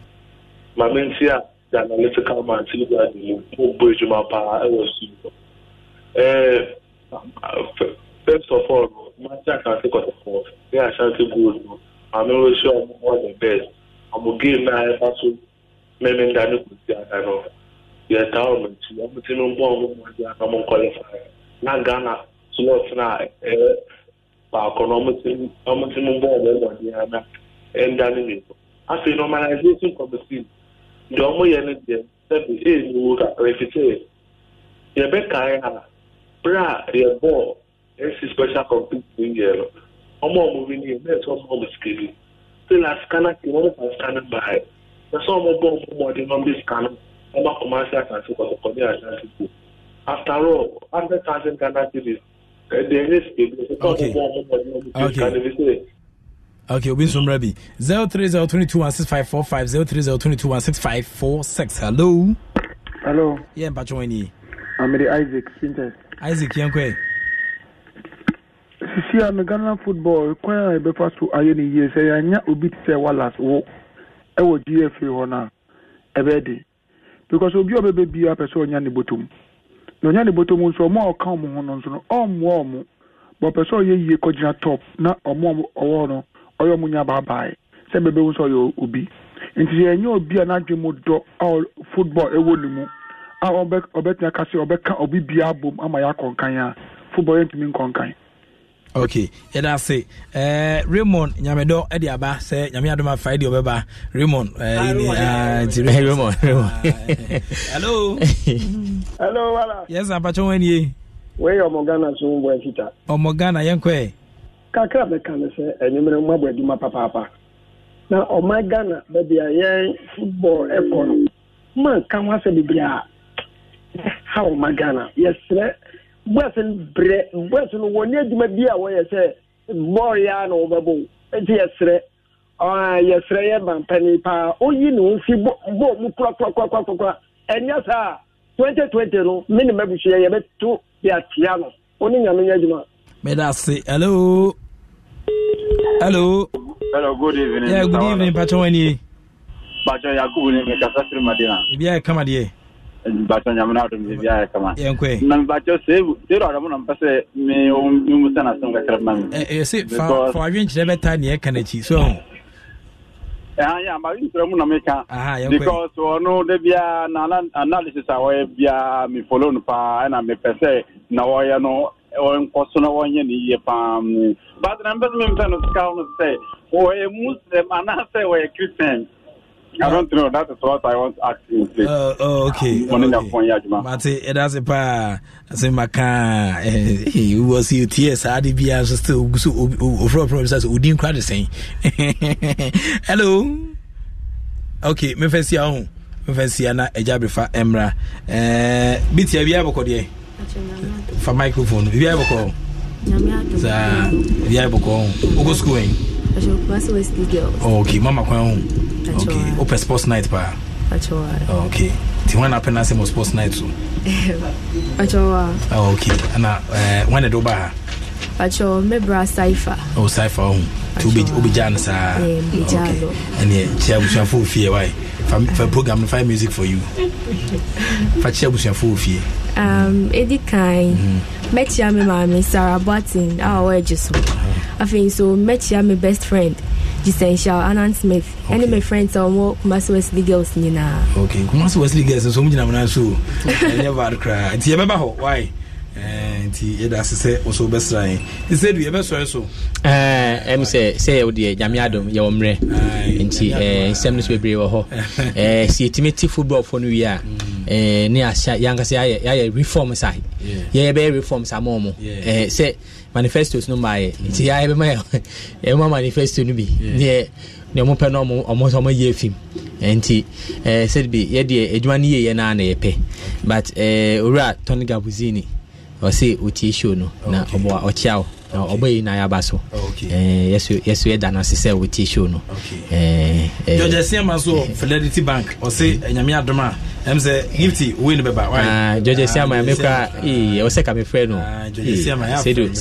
My main fear, the analytical man, see that you move bridge my power, I was you. First of all, Master can take us off. They are shouting good. I'm not sure I'm one of the best. I'm a game now, I'm also meaning that you could see I know. Your town, I'm a team of one, I'm a qualifier. Not Ghana. sinofuna eh, baako n'omutimu ng'omumoni ana endani ngeko afei normalization committee deɛ ɔmo yɛ no deɛ sɛbi enyiwu kakra efisɛ yɛbɛkae ha bere a yɛbɔɔ esi special committee yɛ no ɔmo ɔmo bi ne yɛ ɔmo na scanner ti wɔn fa na ɔmo bɔ ɔmo na ɔmo ɔmo ase asase kɔtɔkɔ ne asase ko after all hundred thousand Eh, okay. Okay. Okay, two one six five four six. hello. hello. yẹ mpatwa wọn ni. amede isaac sintes. isaac yẹn kọ ẹ. sisi a mi ghana football kwan a yɛbɛfa so ayɛ ne yie sɛ yɛanya obi te sɛ wallace wo ɛwɔ eh, gfa hɔ no a ɛbɛɛ de eh, because obi a ɔbɛbɛ bia pɛ sɛ ɔnya ne bɔtom yɛnya ne bɔtɔ mu nso ɔmo a ɔka ɔmo ho no nso no ɔmmoa ɔmo bɔpɛ sɛ ɔyɛ yie kɔgyina top na ɔmo ɔwɔ no ɔyɛ ɔmo nya baabae sɛ bɛbɛhu sɛ ɔyɛ obi nti yɛnyɛ obi a n'adwe mu dɔ a football ɛwɔ ne mu a ɔbɛtena ka sɛ ɔbɛka obi biara abom ama yɛakɔnkan a football yɛntumi nkɔnkan ok yɛda ase uh, raymond nyamedɔ ɛde aba sɛ nyame adom afae deɛ ɔbɛba raymond eh, ah, nti raymond ah, <laughs> hello hello wala yes apakyɛ ho anie wei ɔmɔ ghana so mbɔ afita ɔmɔ ghana yɛnkɔɛ kakra bɛka ne sɛ anwumerɛ mu abɔ adwuma papaapa na ɔma ghana baabi a yɛn football ɛkɔ no manka ho asɛ bebree a ha ɔma ghana yɛserɛ yes, bɔs brɛ bɔs no wɔn ne bi a wɔyɛ sɛ bɔɔl ya na wɔbɛbɔ eti yɛsrɛ ɔn yɛsrɛ yɛ bampani paa oyi ne ho fi bɔɔl mu kurakurakurakura ɛnyɛ saa twenty twenty no mi ne mɛbusua yɛ bɛ to yɛ atia no oni nyame nyɛ adwuma. mɛda ase hello hello. hello good evening. yeah good evening pàtó wani. pàtó yakubu ni mi kasa firi ibi a yɛ kama bakyɛ nyame no adom biribiaa kama na mebakyɛ mi um, adɔmo eh, eh, na mpɛ sɛ memu sɛ nasɛm kakra ma mefa adwenkyerɛ bɛta neɛ ɛka nakyi so yɛ amadwenkyerɛ mu na meka because ɔno da biaa na analysis a wɔyɛ biaa mefolo no paa ɛna mepɛ sɛ na wɔyɛ no nkɔ so na wɔnyɛ ne yie paa mm. but na mpɛ sɛ mempɛ no sika no sɛ wɔyɛ muslim anaasɛ wɔyɛ christian I don't know. That is what I want to ask you. Uh, oh, okay. Mate, that's a pa. I say, Maka, he was here. Yes, I did be as still so overall problems. We didn't quite the same. Hello. Okay, me first year on. Me first year na ejabrifa emra. Biti bit ya biya boko die. For microphone. Biya boko. Sa biya boko. Ugo school. Oh, okay mama kwan ho okay wopɛ sports night paa oh, okay nti wọn apɛ n'asɛm wɔ sports night so <laughs> oh, okay ɛna wɔn na ɛde eh, wo ba ha pacho mebra cipher oh cipher oh to be obijan sa and oh. yeah chia bushafo fie why for program no fire music for you fa chia bushafo fie um edi kind metia me mama Sarah Barton our way just I think so metia me best friend Essential Anan Smith okay. ɛne my friends a ɔmɔ Kumasi Wesley girls nyinaa. okay Kumasi Wesley girls nso wɔn gyina na so ɛnyɛ bad koraa nti yɛbɛba hɔ why. Eh, nti yɛda ase sɛ wo so wobɛsra yɛn nti sɛ du yɛbɛsɔre so eh, ɛm sɛ sɛ yɛwo deɛ nyame adom yɛwɔ mmerɛ nti eh, nsɛm no so bebree wɔ hɔ <laughs> sɛ yɛtumi te footballfoɔ no wie a mm. ne ahyɛ yɛankasa yɛayɛ reform sa yɛyɛbɛyɛ reform sa mɔɔ mu sɛ manifestos no maayɛ mm. nti yɛbɛma <laughs> yɛma manifesto no bi neɛ ne ɔmo pɛ no ɔmo ɔmo yɛ fim nti ɛɛ sɛdebi yɛdeɛ adwuma no yɛ yɛ na yɛpɛ but ɛɛ owura tony gabuzini ɔse ɔtie show no na ɔbɔ ɔkyea wo na ɔbɔ yi na so yɛso yɛda no ase sɛ wɔtie show no george asiama so <laughs> fidelity bank ɔse nyame adom a ɛm sɛ gifty wei no bɛba ah, george asiama ah, me kora ah, ɛwɔ oh, oh, sɛ ka eh, mefrɛ no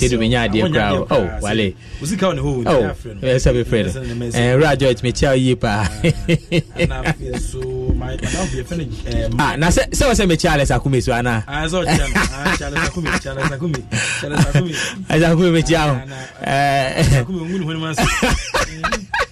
sɛdo menya adeɛ kora wale mefrɛ no wura george mekyea wo yie paa Um, ah, na sɛ sɛ wɔ sɛ me charles akumi so anaa charles ah, ah, akumi mekyia ho <laughs>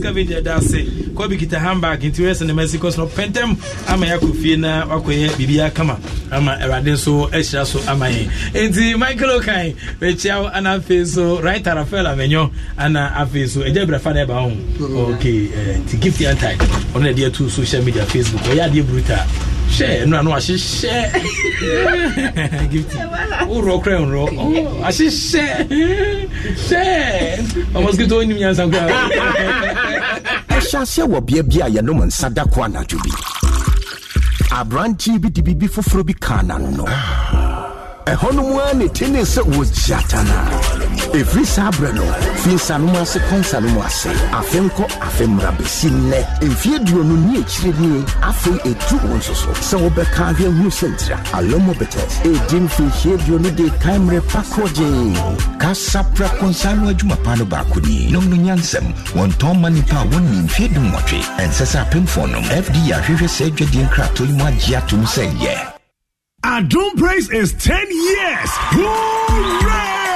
scavenger da ase kɔ bi kita handbag nti wɔyɛ sɛnɛma si kɔsɔn pɛntɛm ama yɛ akɔ fie na wakɔyɛ biribi akama ama awurade nso ahyira so ama yɛn nti michael okan bɛkyia ana afei nso right rafael amanyɔ ana afei nso agya birafa na ɛba ho mm-hmm. ok eh, nti gift yantai ɔno na ɛde ato social media facebook ɔyɛ adeɛ brutal hyɛ ɛnu ano ahyehyɛ gift wúrọ kura nrọ ahyehyɛ hyɛ ɔmɔsikito onim yansan kura. ɛhyɛ aseɛ wɔ bea bi a yɛnom nsa da ko anadwo bi aberanteɛ bi de biribi foforɔ bi kaa n'ano no ɛhɔ no mu ara ne tene sɛ wɔgyatana ɛfiri saa berɛ no fi nsanom ase kɔ nsanom ase afe nkɔ afe mmara bɛsi nnɛ mfeɛ duonu ne akyire nie afei ɛtu wo nso so sɛ wobɛka ahwɛ hunu sɛntira alomo ɛdi mfirihyia duonu de kae mmerɛ pa kɔgyee kasapra kɔnsa no adwuma pa no baako ni nom no nyansɛm wɔntɔn ma nnipa a wɔnni mfeɛ dumwɔtwe ɛnsɛ sɛ apemfoɔ nom fd ahwehwɛ saa adwadeɛ nkratoyi mu agye atom sɛ yɛ Our doom Praise is 10 years. Hooray!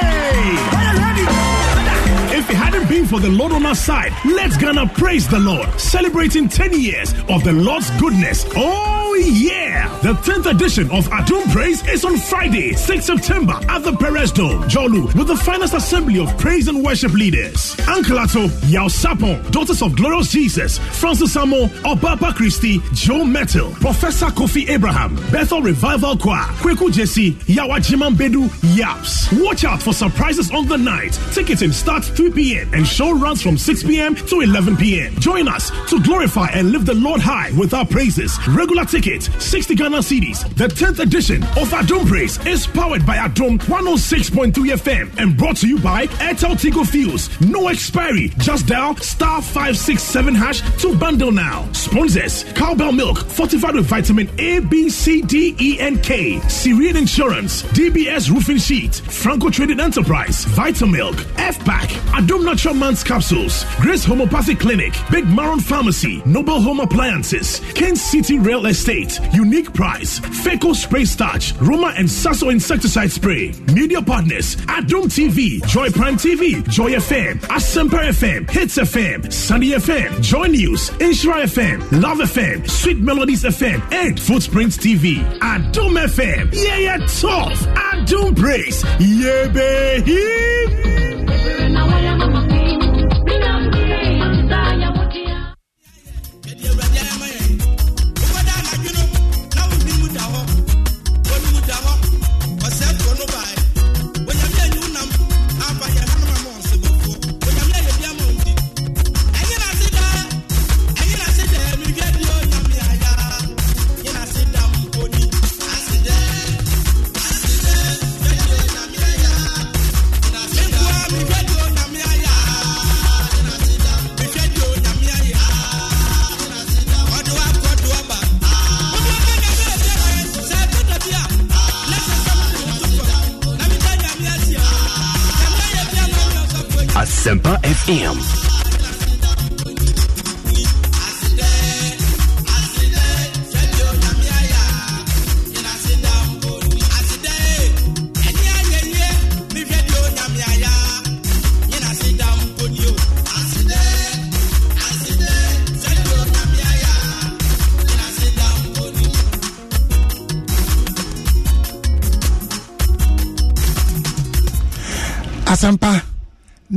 If it hadn't been for the Lord on our side, let's gonna praise the Lord, celebrating 10 years of the Lord's goodness. Oh! Oh, yeah! The 10th edition of Adum Praise is on Friday, 6 September at the Perez Dome, Jolu, with the finest assembly of praise and worship leaders. Uncle Ato, Yao Sapon, Daughters of Glorious Jesus, Francis Samo, Obapa Christie, Joe Metal, Professor Kofi Abraham, Bethel Revival Choir, Kweku Jesse, Yawa Jiman Bedu, Yaps. Watch out for surprises on the night. Ticketing starts 3 p.m. and show runs from 6 p.m. to 11 p.m. Join us to glorify and lift the Lord high with our praises. Regular ticket. 60 Ghana CDs. The 10th edition of Adom Praise is powered by Adom 106.3 FM and brought to you by Airtel Tigo Fuels. No expiry. Just dial star 567 hash to bundle now. Sponsors Cowbell Milk, fortified with vitamin A, B, C, D, E, and K. Syrian Insurance, DBS Roofing Sheet, Franco Trading Enterprise, Vitamilk, F-Pack, Adom Natural Man's Capsules, Grace Homopathic Clinic, Big Maron Pharmacy, Noble Home Appliances, Kent City Real Estate. Unique Price, FECO Spray Starch, Roma and Sasso Insecticide Spray. Media partners, Adum TV, Joy Prime TV, Joy FM, Asemper FM, Hits FM, Sunny FM, Joy News, Insura FM, Love FM, Sweet Melodies FM, and Footprints TV. Adum FM, yeah, yeah, tough. Adum Praise, yeah, baby.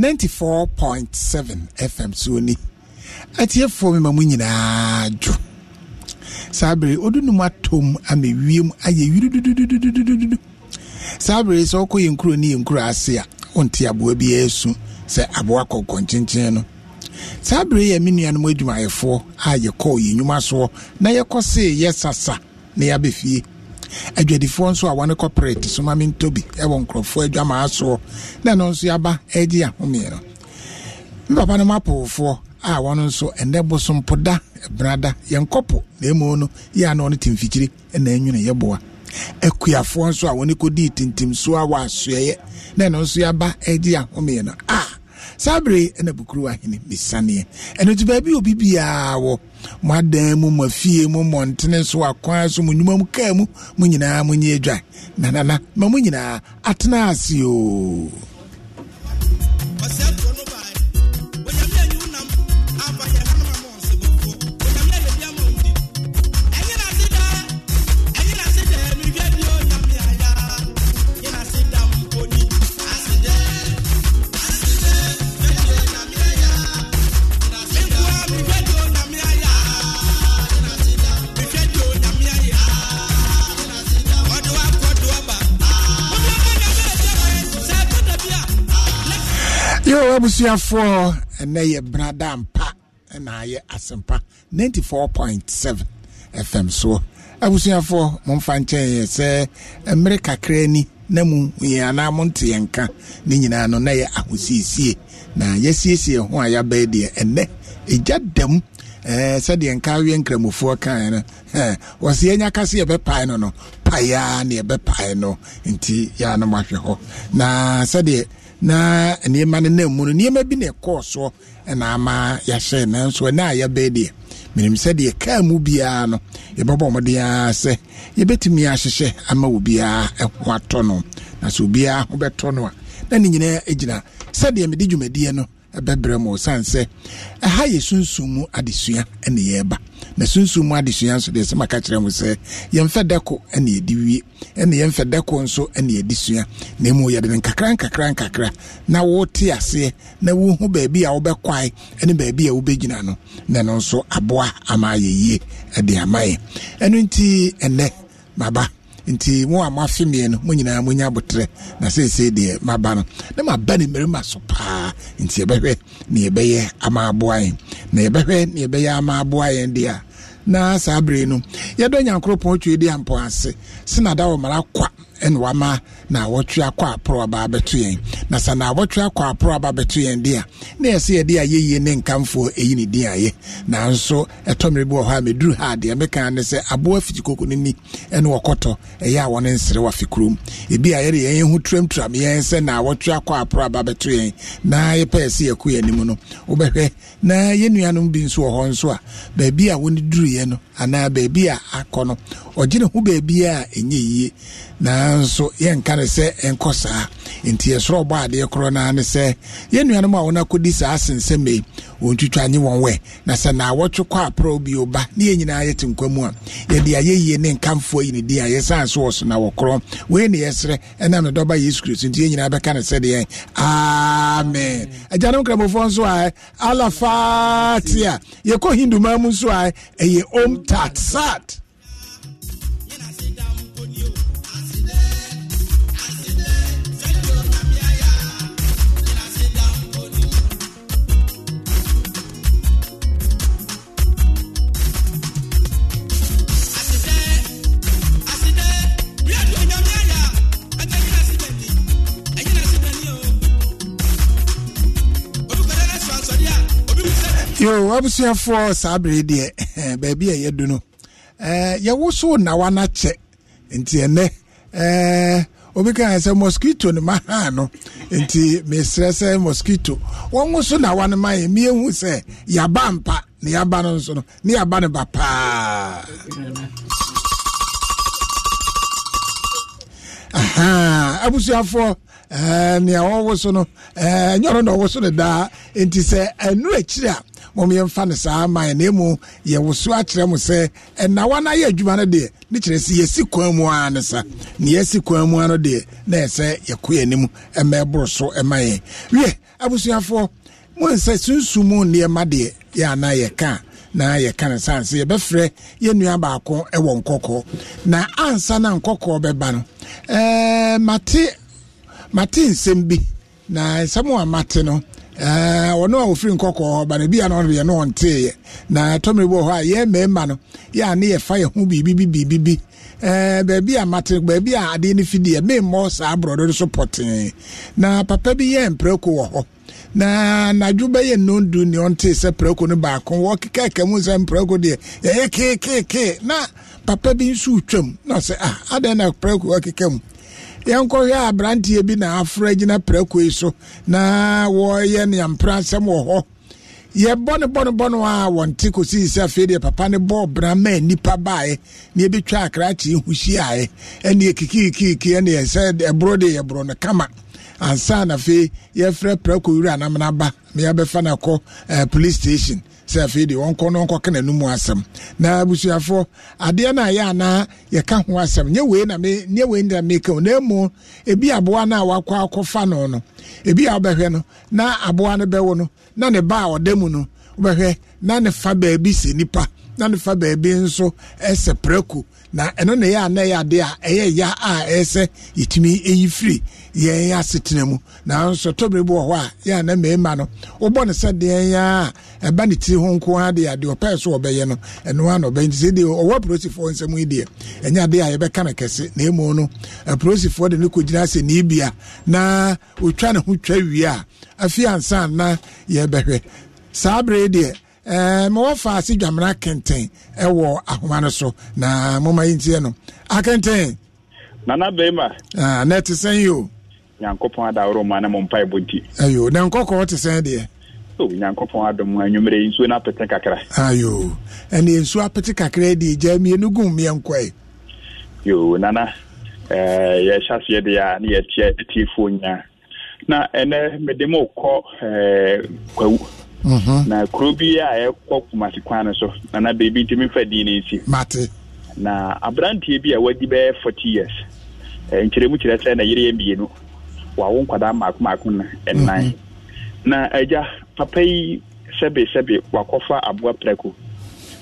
ninety four point seven fm so ni atiefoɔ mi ma mu nyinaa dwo saa bere odu numu atom ama wiem ayɛ yiri dududududududu saa bere sɛ ɔkɔ yɛn kuro ne yɛn kuro ase a ɔnte aboa bi ɛɛsu sɛ aboa kɔkɔ nkyenkyen no saa bere yɛ me nuanom adwumayɛfoɔ a yɛkɔɔ yɛn nnwuma soɔ na yɛkɔ see yɛ sasa na yɛabɛfie adwadifoɔ nso a wɔne corporate somame ntobi ɛwɔ nkurɔfoɔ adwamaa soɔ na ɛno nso yɛaba agye ahomeɛ no me papa no m a wɔno nso ɛnɛ bosompoda brada yɛnkɔpo na ɛmu no yɛ a na ɔno temfikyiri na ɛnwene yɛboa akuafoɔ nso a wɔne kɔdii tintim so a wɔ asoɛeɛ na ɛno nso yɛaba agye ahomeɛ no a ah. sabre bere ɛna bukuru ahene bisaneɛ ɛno nti baabi obi biara wɔ mo adan mu mo afie mu mmɔntene so akwan so mo nnwuma mu kaa mu mo nyinaa na na na ma mo nyinaa atena ase yɛwɔ abusuafoɔ ɛnɛ yɛ brada mpa ɛna ayɛ asɛmpa 94.7 fm soɔ abusuafoɔ momfa nkyɛn yɛ sɛ mmerɛ kakra ni na mu yɛ anaa monte yɛn ka ne nyinaa no na yɛ ahosiesie na yɛsiesie ho a yɛabɛɛ deɛ ɛnɛ ɛgya dam sɛdeɛ nka awie nkramofoɔ kaeɛ no wɔsɛ yɛnya ka sɛ yɛbɛpae no no paeɛ a ne yɛbɛpae no nti yɛa no mahwɛ hɔ na sɛdeɛ na nneɛma no nam mu no nneɛma bi na ɛkɔɔ soɔ ɛna ama yɛahyɛ nanso ɛna a yɛbɛɛ deɛ menim sɛ deɛ kaa mu biara no yɛbɛbɔ mmɔden ara sɛ yɛbɛtumi ahyehyɛ ama obiara ɛho atɔ no na sɛ obiara ho bɛtɔ no a na ne nyinaa gyina sɛdeɛ mede dwumadie no ɛbɛbrɛ mu osiane sɛ ɛha yɛ sunsum mu adesua ɛne yɛreba na sunsum mu adesua nso deɛ sɛma ka kyerɛ mu sɛ yɛmfɛ dako ɛne yɛde wie ɛne yɛmfɛ dako nso ɛne yɛde sua na mu yɛde ne nkakra nkakra nkakra na wote aseɛ na wohu baabi a wobɛkwae ɛne baabi a wobɛgyina no na ɛno nso aboa ama yɛ yie ɛde ama yɛ ɛno nti ɛnɛ maba nti mu a moafe mmiɛ no mo nyinaa monya abotrɛ na seesei deɛ ba no na maba ne mmarima so paa nti yɛbɛhwɛ ne yɛbɛyɛ ama aboa yɛn na yɛbɛhwɛ ne yɛbɛyɛ ama aboa yɛn deɛ a na saa bere no yɛdɔ nyankoropɔn twe di ampɔ ase sena da wɔ kwa ɛna wama na wɔtwe akɔ aporɔ aba abɛto yɛn na sɛ na wɔtwe akɔ aporɔ aba abɛto yɛn deɛ na yɛsɛ yɛde ayɛyie ne nkamfoɔ ɛyi ne din ayɛ nanso ɛtɔmmere bi wɔ hɔ a meduru ha deɛ meka ne sɛ aboa fiti koko no ni ɛne wɔkɔtɔ ɛyɛ a wɔne nsere wafe kurom ebi a yɛde yɛn ho turamturam yɛn sɛ na wɔtwe akɔ aporɔ aba abɛto yɛn na yɛpɛ sɛ yɛkɔ yɛn anim no wobɛhwɛ na yɛn nuanom bi nso wɔ hɔ nso a baabi a wɔne duruiɛ no anaa baabi a akɔ no ɔgye ho baabi a ɛnyɛ yie nanso yɛnka ne sɛ ɛnkɔ saa nti yɛsoro bɔ adeɛ korɔ naa ne sɛ yɛn nuanom a wɔn akɔdi saa asensɛm yi wɔn twitwa nye wɔn wɛ na sɛ naawɔtwe kɔ aprɔ bi ɔba, ne yɛn nyinaa yɛte nkwa mu a yɛde ayɛyie ne nkamfoɔ yi ne di a yɛsan so wɔ so na wɔkorɔ wei ne yɛsrɛ ɛnam ne dɔba yesu kristo nti yɛn nyinaa bɛka ne deɛ, amen agyanom kramofoɔ nso a alafatia yɛkɔ hindu maa mu nso a ɛyɛ om yo abusuafoɔ saa bere deɛ eh, baabi a yɛ yɛdu no eh, yɛwo so nawa no akyɛ nti ɛnɛ eh, obi ka sɛ mosquito no ma haa no nti mesrɛ sɛ mosquito wɔn so nawa no ma yɛ miɛhu sɛ yaba mpa ne yɛaba no nso no ne yɛaba no ba paa abusuafoɔ nea wɔwo no ɛɛ nyɔno na ɔwo so no daa nti sɛ ɛnuro akyiri a mommyɛmfa no saa ma na emu mu yɛwoso akyerɛ mo sɛ wa na yɛ adwuma no deɛ ne kyerɛ sɛ yɛsi kwan mu ara ne sa ne yɛsi kwan mu ara no deɛ na ɛsɛ yɛkɔ anim ɛmɛ ɛboro so ɛma yɛn wie abusuafoɔ mo nsɛ sunsumu nneɛma deɛ yɛ yɛ yɛka na yɛka no saa sɛ yɛbɛfrɛ yɛnnua baako ɛwɔ nkɔkɔɔ na ansa na nkɔkɔɔ bɛba no ɛɛɛ mate mate nsɛm bi na nsɛm a mate no ɔno eh, a ɔfiri nkɔkɔɔ hɔ banabi a no ɔno deɛ no ɔnteeɛ na tɔmmere bi wɔ hɔ a yɛ mmarima no yɛ a ne yɛfa yɛ ho biribi biribi Ɛɛ eh, beebi a mate beebi a adeɛ no fidiɛ memmɔ saa borɔdo no so pɔtee na papa bi yɛ mpereko wɔ hɔ na n'adwo bɛyɛ nnondu ne ɔntee sɛ prako no baako wɔkekaka mu sɛ mprako deɛ yɛyɛ keekekee na papa bi nso retwam na ɔsɛ ah adɛn na prako wɔkeka mu yɛnkɔhwɛ aberanteɛ bi na afra gyina prako yi so na wɔyɛ neampra nsɛm wɔ hɔ yɛbɔ ne bɔ ne bɔ no a wɔnte kɔsii sɛ afei deɛ papa ne bɔɔ bra ma nnipa baeɛ na yɛbɛtwa akrakye ho hyiaeɛ ɛne ɛkikikiki ɛne ɛsɛ ɛboro de yɛborɔ no kama ansa na afei yɛfrɛ prako wura anamna ba na yɛbɛfa no akɔ eh, police station sɛ afei deɛ wɔnkɔ no wɔnkɔka n'anum asɛm na abusuafoɔ adeɛ no a yɛ anaa yɛka ho asɛm nyɛ wei na me nyɛ wei na meka o na emu ebi aboa no a wakɔ akɔfa no no ebi a wobɛhwɛ no na aboa no bɛwo no na ne ba a ɔda mu no wobɛhwɛ na ne fa baabi sɛ nipa na ne fa baabi nso ɛsɛ prɛko. na ɛno na ɛyɛ ana adeɛ a ɛyɛ ya a ɛsɛ sɛ yɛtumi ɛyi firi yɛn asetena mu nanso tɔbere bi wɔ hɔ a yɛ ana mmarima no wobɔ ne sɛ deɛ ya a ɛba ne tiri ho nko ara deɛ adeɛ ɔpɛɛ so ɔbɛyɛ no ɛno ara na ɔbɛyɛ nti sɛ deɛ ɔwɔ apolisifoɔ nsɛm yi deɛ ɛnyɛ adeɛ a yɛbɛka no kɛse na emu no apolisifoɔ de ne kɔgyina sɛ ne bia na ɔtwa ne ho twa wie a afei ansa na yɛbɛhwɛ saa bere deɛ Eh, ma wɔfa ase dwamena kenten ɛwɔ ahoma no na moma yi ntiɛ no akenten nana bɛrima ah, na ɛte sɛn yi o nyankopɔn adaworo ma na mo mpa ɛbɔ nti ayo na nkɔkɔɔ te sɛn deɛ nyankopɔn adom anwummerɛ yi nsuo na apete kakra ayo ɛne nsuo apete kakra deɛ gya mmienu gum mmiɛnkɔe yo nana eh, yɛhyɛ aseɛ deɛ a na yɛtiɛ atiefoɔ nyinaa na ɛnɛ mede ma wokɔ eh, kwawu Mhm. na kuro bi a ɛkɔ kumasi kwan no so na beebi ntumi nfa din ne nsi mate na aberanteɛ bi a wadi bɛyɛ forty years nkyerɛmu kyerɛ sɛ na yere yɛ mmienu wawo nkwadaa mmaako mmaako na ɛnan mhm. na agya papa yi sɛbe sɛbe wakɔfa aboa prɛko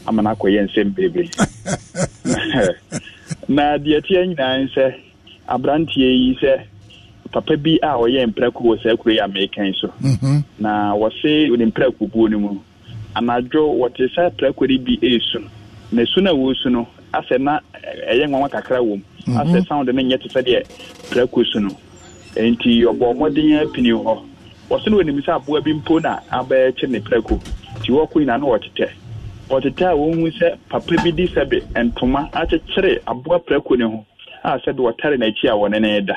ama no akɔyɛ nsɛm bebree <laughs> <laughs> na deɛ teɛ nyinaa sɛ aberanteɛ yi sɛ papa bi a ɔyɛ mprako wɔ saa kuro yi a meekan so mhm. na wɔse ne mprako buo no mu anadwo wɔte saa prako no bi ɛresu na su no a wɔresu no asɛ na ɛyɛ nwanwa kakra wɔ mu mhm. asɛ sound no nyɛ te sɛ deɛ prako su no nti ɔbɔ mmɔden apini hɔ wɔse no wɔnim sɛ aboa bi mpo na abɛɛkye ne prako nti wɔkɔ nyinaa na wɔtetɛ wɔtetɛ a wɔhu sɛ papa bi di sɛbe ntoma akyekyere aboa prako ne ho a sɛde wɔtare n'akyi a wɔne ne da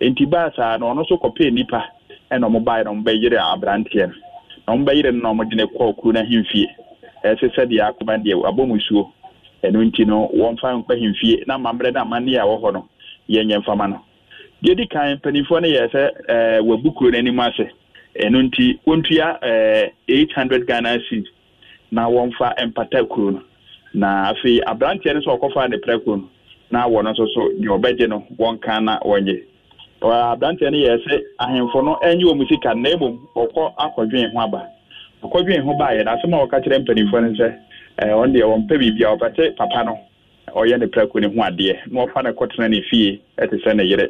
nti baasa na ɔno nso nnipa ɛna ɔmo na ɔmo bɛyere aberanteɛ no na ɔmo bɛyere no na ɔmo de ne kɔɔ kuro ɛsɛ akoma deɛ abɔ mu suo nti no na mammerɛ no amanneɛ a ɛwɔ hɔ no yɛnyɛ mfama no deɛ di kan mpanimfoɔ no yɛ sɛ ɛɛ eh, kuro ase nti ɛɛ eh, eight hundred ghana na wɔmfa mpata kuro na afei aberanteɛ no nso ɔkɔfa ne prɛ kuro no na wɔn nso so deɛ ɔbɛgye no na wɔnyɛ aberanteɛ no yɛ sɛ ahemfo no sika na mmom ɔkɔ akɔdwen aba ɔkɔdwen ho baayɛ na asɛm a kyerɛ mpanimfoɔ no sɛ deɛ papa no ɔyɛ ne prako ne ho adeɛ na no kɔtena ne fie ɛte sɛ ne yere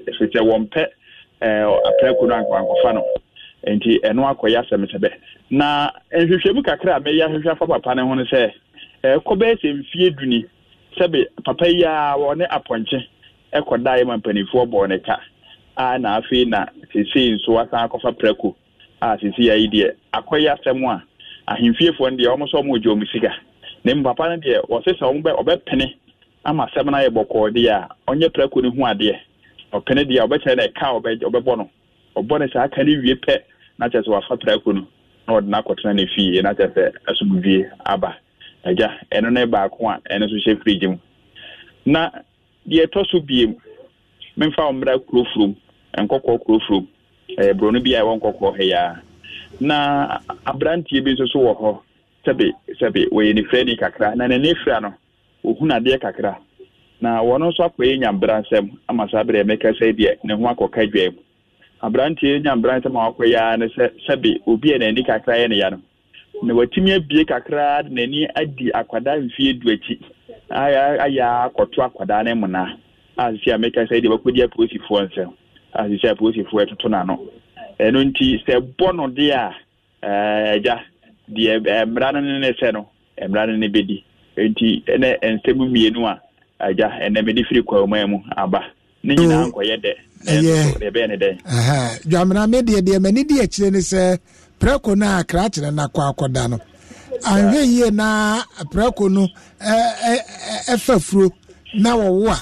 prako no no nti ɛno akɔyɛ na nhwehwɛmu kakra a mɛyɛ ahwehwɛ afa papa no ho no sɛ duni papa yi a wɔne apɔnkye ɛkɔdaeɛ ma mpanimfoɔ a na afei na sisi nso asan akɔfa a deɛ asɛm a ahemfiefoɔ no deɛ nso na mu papa no deɛ ɔsesa bɛ ɔbɛpene ama asɛm no ayɛ bɔkɔɔ deɛ a ɔnyɛ prako no ho adeɛ ɔpene deɛ ɔbɛkyerɛ na ɛka ɔbɛ ɔbɛbɔ no ɔbɔ no saa wie pɛ na kyerɛ sɛ wafa prako no na ɔde no akɔtena no na kyerɛ sɛ asomdwie aba agya ɛno ne baako a ɛno nso hyɛ firigye mu na deɛ nkɔkɔɔ kurofuro ɛɛ buroni bi a ɛwɔ nkɔkɔɔ ɛyaa na aberanteɛ bi nso so wɔ hɔ sɛbi sɛbi wɔyɛ ne ni kakra na n'ani fira no ohun adeɛ kakra na wɔn nso akɔyɛ nyambra nsɛm ama saa abirɛ mɛka sɛ deɛ ne ho akɔka dwa mu aberanteɛ nyambra nsɛm a wakɔyɛ ara ne sɛ sɛbi obi a n'ani kakra yɛ ne ya no na watumi abie kakra de n'ani adi akwadaa mfie du akyi ayɛ akɔto akwadaa ne muna a sisi a mɛka sɛ deɛ wakɔdi apolisifoɔ nsɛm asisi apolisifoɔ ɛtoto n'ano ɛno nti sɛ bɔ no de a ɛgya eh, deɛ eh, mmara no ne ne sɛ no eh, mmara no ne bɛdi nti ɛnɛ nsɛm mmienu a agya ɛnɛ mede firi kwaman mu aba ne nyinaa nkɔyɛ dɛ ɛbɛyɛ ne dɛ dwamena me deɛ deɛ m'ani di akyire ne sɛ prɛko no a krakyerɛ no akɔ akɔda no anhwɛ yie na prɛko no ɛfa furo na wɔwo a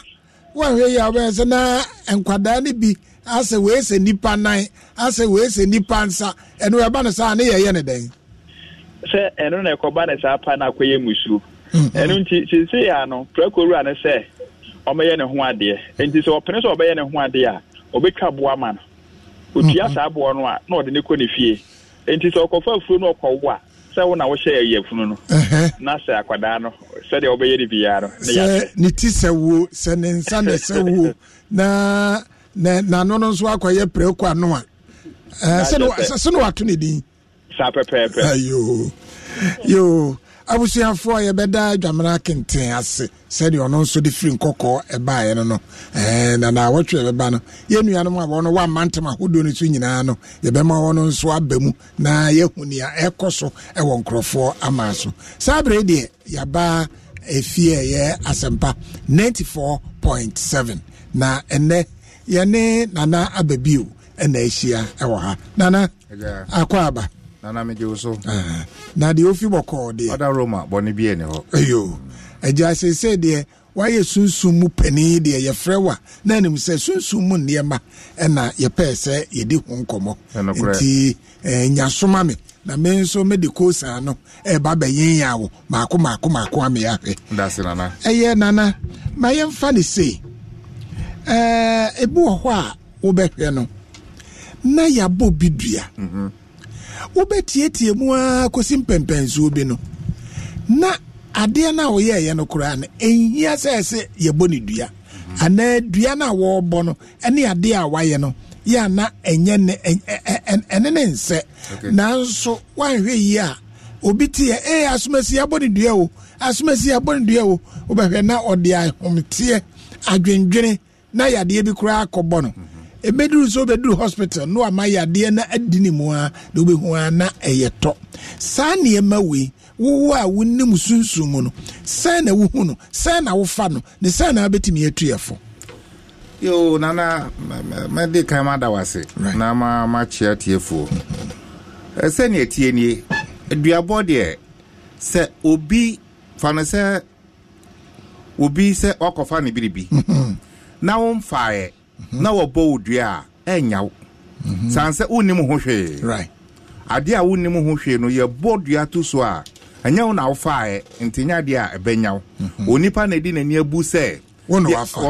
woanhwɛ yie a wobɛyɛ sɛ na nkwadaa no bi asɛ wee sɛ nipa nan asɛ wee sɛ nipa nsa ɛno ɛba no saa ne yɛyɛ ne dɛn sɛ ɛno na ɛkɔba ne saa pa akɔyɛ mm-hmm. nti ne sɛ ɔmɛyɛ ne ho adeɛ nti sɛ sɛ ɔbɛyɛ ne ho adeɛ a ɔbɛtwa no otua mm-hmm. saa boɔ no a na ɔde ne kɔ ne fie nti sɛ ɔkɔfa afuo a sɛ wo na wohyɛ ɛyɛ funu no na sɛ akwadaa no sɛdeɛ wobɛyɛ ne biara no ne yɛ ne ti sɛ wo sɛ ne nsa <laughs> na n'ano no nso akɔyɛ prɛko ano a sɛ ne wato ne din saa pɛpɛɛpɛ yoo yoo abusuafoɔ yɛbɛda adwamena kenten ase sɛdeɛ ɔno nso de firi nkɔkɔɔ ɛbaeɛ no no na na wɔtwe bɛba no yɛn nuanom a wɔn wɔamma ntɛm ahodoɔ no so nyinaa no yɛbɛma wɔn nso aba mu na yɛhu nea ɛkɔ so ɛwɔ nkurɔfoɔ ama so saa abere deɛ yɛaba efie ɛyɛ asɛmpa ninety four point seven na ɛnɛ yɛne nana ababio ɛna ahyia ɛwɔ ha nana akɔ aba nana megye so eh, na deɛ ofi bɔkɔɔ deɛ ɔda roma bɔne bi ani hɔ ayo agya sesei deɛ wayɛ sunsum mu panin deɛ yɛfrɛ wa na anim sɛ sunsum mu nneɛma ɛna yɛpɛɛ sɛ yɛdi ho nkɔmmɔ e nti eh, nyasoma me na me nso mede kosaa no ɛba e bɛyenya wo maako maako maako ame ahwɛ ɛyɛ nana ma yɛmfa ne sei ɛɛ ebi wɔ hɔ a wobɛhwɛ no na yabɔ bi dua mhm. wobɛtietie mu ara kɔsi mpɛmpɛnsuo bi no na adeɛ no a wɔyɛɛyɛ no koraa no ɛnhia sɛ ɛsɛ yɛbɔ ne dua anaa dua no a wɔrebɔ no ɛne adeɛ a wayɛ no yɛ ana ɛnyɛ ne ɛne ne nsɛ nanso woanhwɛ yie a obi teɛ ee asomasi abɔ ne dua o asomasi abɔ ne dua o wobɛhwɛ na ɔde ahomteɛ adwendwene na yadeɛ bi koraa akɔbɔ no ebeduru so obeduru hospital no ama yadeɛ na adi ne mu a na obehu a na ɛyɛ tɔ saa nneɛma wei wowo a wonim sunsun mu no sɛn na wohu no sɛn na wofa no ne sɛn na wabɛtumi atu yɛ fo. yoo nana mɛde kan ma da wase na ma ma kyea tiefoɔ ɛsɛ eh, nea tie nie aduabɔ deɛ sɛ obi fa no sɛ obi sɛ ɔkɔfa ne biribi. Mhm. na womfaeɛ mhm. na wɔbɔ wo dua a ɛnya wo mhm. sane sɛ wonnim ho hwee adeɛ a wonnim ho hwee no yɛbɔ dua to so a ɛnyɛ wo na wofaeɛ nti nyɛ adeɛ a ɛbɛnya wo mhm. onipa na ɛdi n'ani abu sɛ wɔ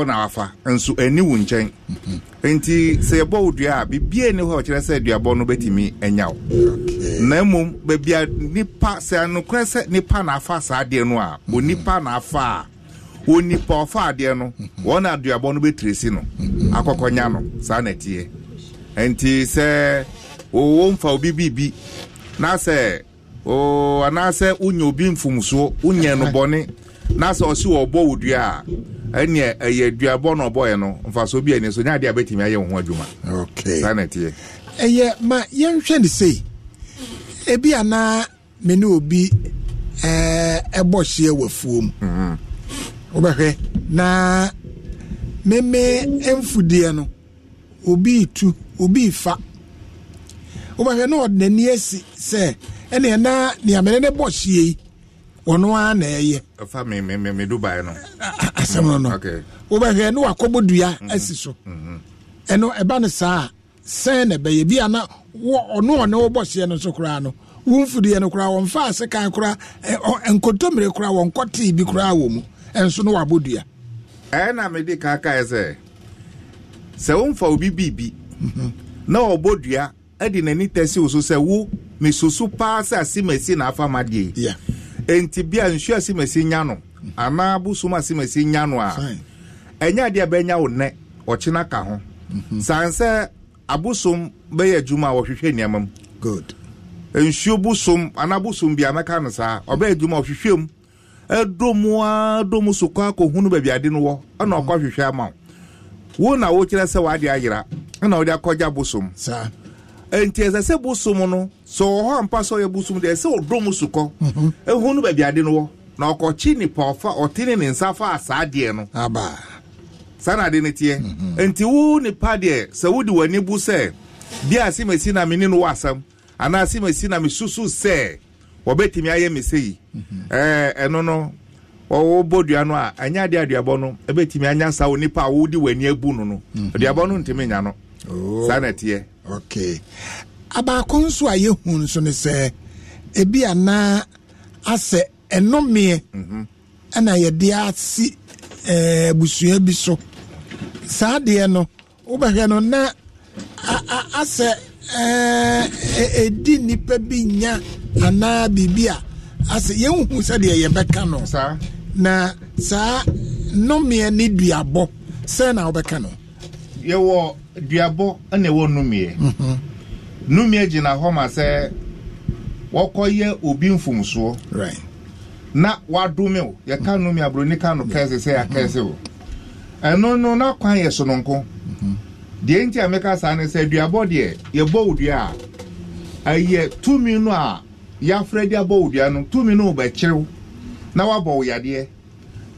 na wafa nso ɛni wo nkyɛn nti sɛ yɛbɔ wo dua a bibia ni hɔ kyerɛ sɛ aduabɔ no bɛtumi anya wo na mmom a nipa sɛ anokorɛ sɛ nipa na afa saa adeɛ no a onipa na afa a onipa ɔfa adeɛ no wɔn aduabɔ no bɛtire si no akɔkɔnya no saa na ɛteɛ nti sɛ wɔwɔ nfa obi biribi na sɛ oo anaasɛ unya obi mfomsoɔ unya no bɔne na sɛ ɔsi wɔ ɔbɔ wo dua a ɛneɛ ɛyɛ duabɔ na ɔbɔɛ no mfasoɔ bi ani so nyɛ adeɛ a bɛtumi ayɛ wo ho adwuma saa na ɛteɛ ɛyɛ ma yɛnhwɛ ne sei ebi anaa me ne obi ɛɛ ɛbɔ hyeɛ wɔ afuom wobɛhwɛ na meme mfudeɛ no obi tu obi fa wobɛhwɛ na ɔde n'ani asi sɛ ɛneɛ na neamene ne bɔ hyie yi ɔno ara na ɛyɛ asɛm no no wobɛhwɛ na wakɔbɔ dua mm-hmm. asi so mm-hmm. ɛno ɛba no saa a sɛn na ɛbɛyɛ bia na ɔno ɔne wobɔ hyeɛ no nso koraa no wo mfudeɛ no koraa wɔmfa ase kan koraa nkɔtɔmmire koraa wɔnkɔtee bi koraa wɔ mu nso no wabɔ dua na mede ka kae sɛ sɛ womfa obi biribi mhm. na ɔbɔ dua ɛde n'ani tɛsi wo so sɛ wo mesusu paa sɛ asemasi na afa ma deɛ enti bia nsu asemasi nya no anaa bosom asemasi nya no a ɛnyɛ adeɛ bɛnya wo nnɛ ɔkyena ka ho mhm. san sɛ abosom bɛyɛ adwuma a wɔhwehwɛ nneɛma mu nsuo bosom anaa bosom bia mɛka no saa ɔbɛyɛ adwuma ɔhwehwɛ mu ɛdɔ mu a dɔ mu sokɔ akɔhunu baabi ade no wɔ ɛna ɔkɔ mm-hmm. hwehwɛ ama wo na wokyerɛ sɛ wade ayera ɛna wode akɔgya bosom nti ɛsɛ sɛ bosom no sɛ ɔwɔ hɔ ampa sɛ ɔyɛ bosom deɛ ɛsɛ ɔdɔ mu sokɔ ɛhunu mm-hmm. e baabi ade no wɔ na ɔkɔkye nipa ɔfa ɔtene ne nsa fa saa deɛ no saa na ade no mm-hmm. teɛ nti wo nipa deɛ sɛ wode w'ani bu sɛ bia asemasi na mene no wɔ asɛm anaa asemasi na mesusu sɛ wɔbɛtumi ayɛ mese yi mhm. ɛɛ ɛno no wɔwɔ bɔ dua no a ɛnyɛ adeɛ aduabɔ no ɛbɛtumi anya saa o nipa a wɔdi wɔn ani abu no no mhm. aduabɔ no ntumi nya no oh, saa na ɛteɛ. okay abaako nso a yɛhu nso ne sɛ ebi ana asɛ ɛnomeɛ mhm. ɛna yɛde asi ɛɛ busua bi so saa adeɛ no wobɛhwɛ no na a a asɛ. ɛdi nipa bi nya anaa biribi a asɛ yɛn hu sɛdeɛ yɛbɛka no na saa nnɔmeɛ ne duabɔ sɛ na wobɛka no yɛwɔ duabɔ ɛna ɛwɔ nnumeɛ mhm. nnumeɛ gyina hɔ ma sɛ wɔkɔyɛ obi mfomsoɔ na wadome o yɛka nnome aburoni ka no kɛse sɛ yɛakɛse o ɛno no n'akwan yɛ sononko mhm. deɛ nti a meka saa ne sɛ aduabɔ deɛ yɛbɔ wo a ɛyɛ tumi no a yɛafrɛ de abɔ odua no tumi no wobɛkyerew na woabɔ wo yadeɛ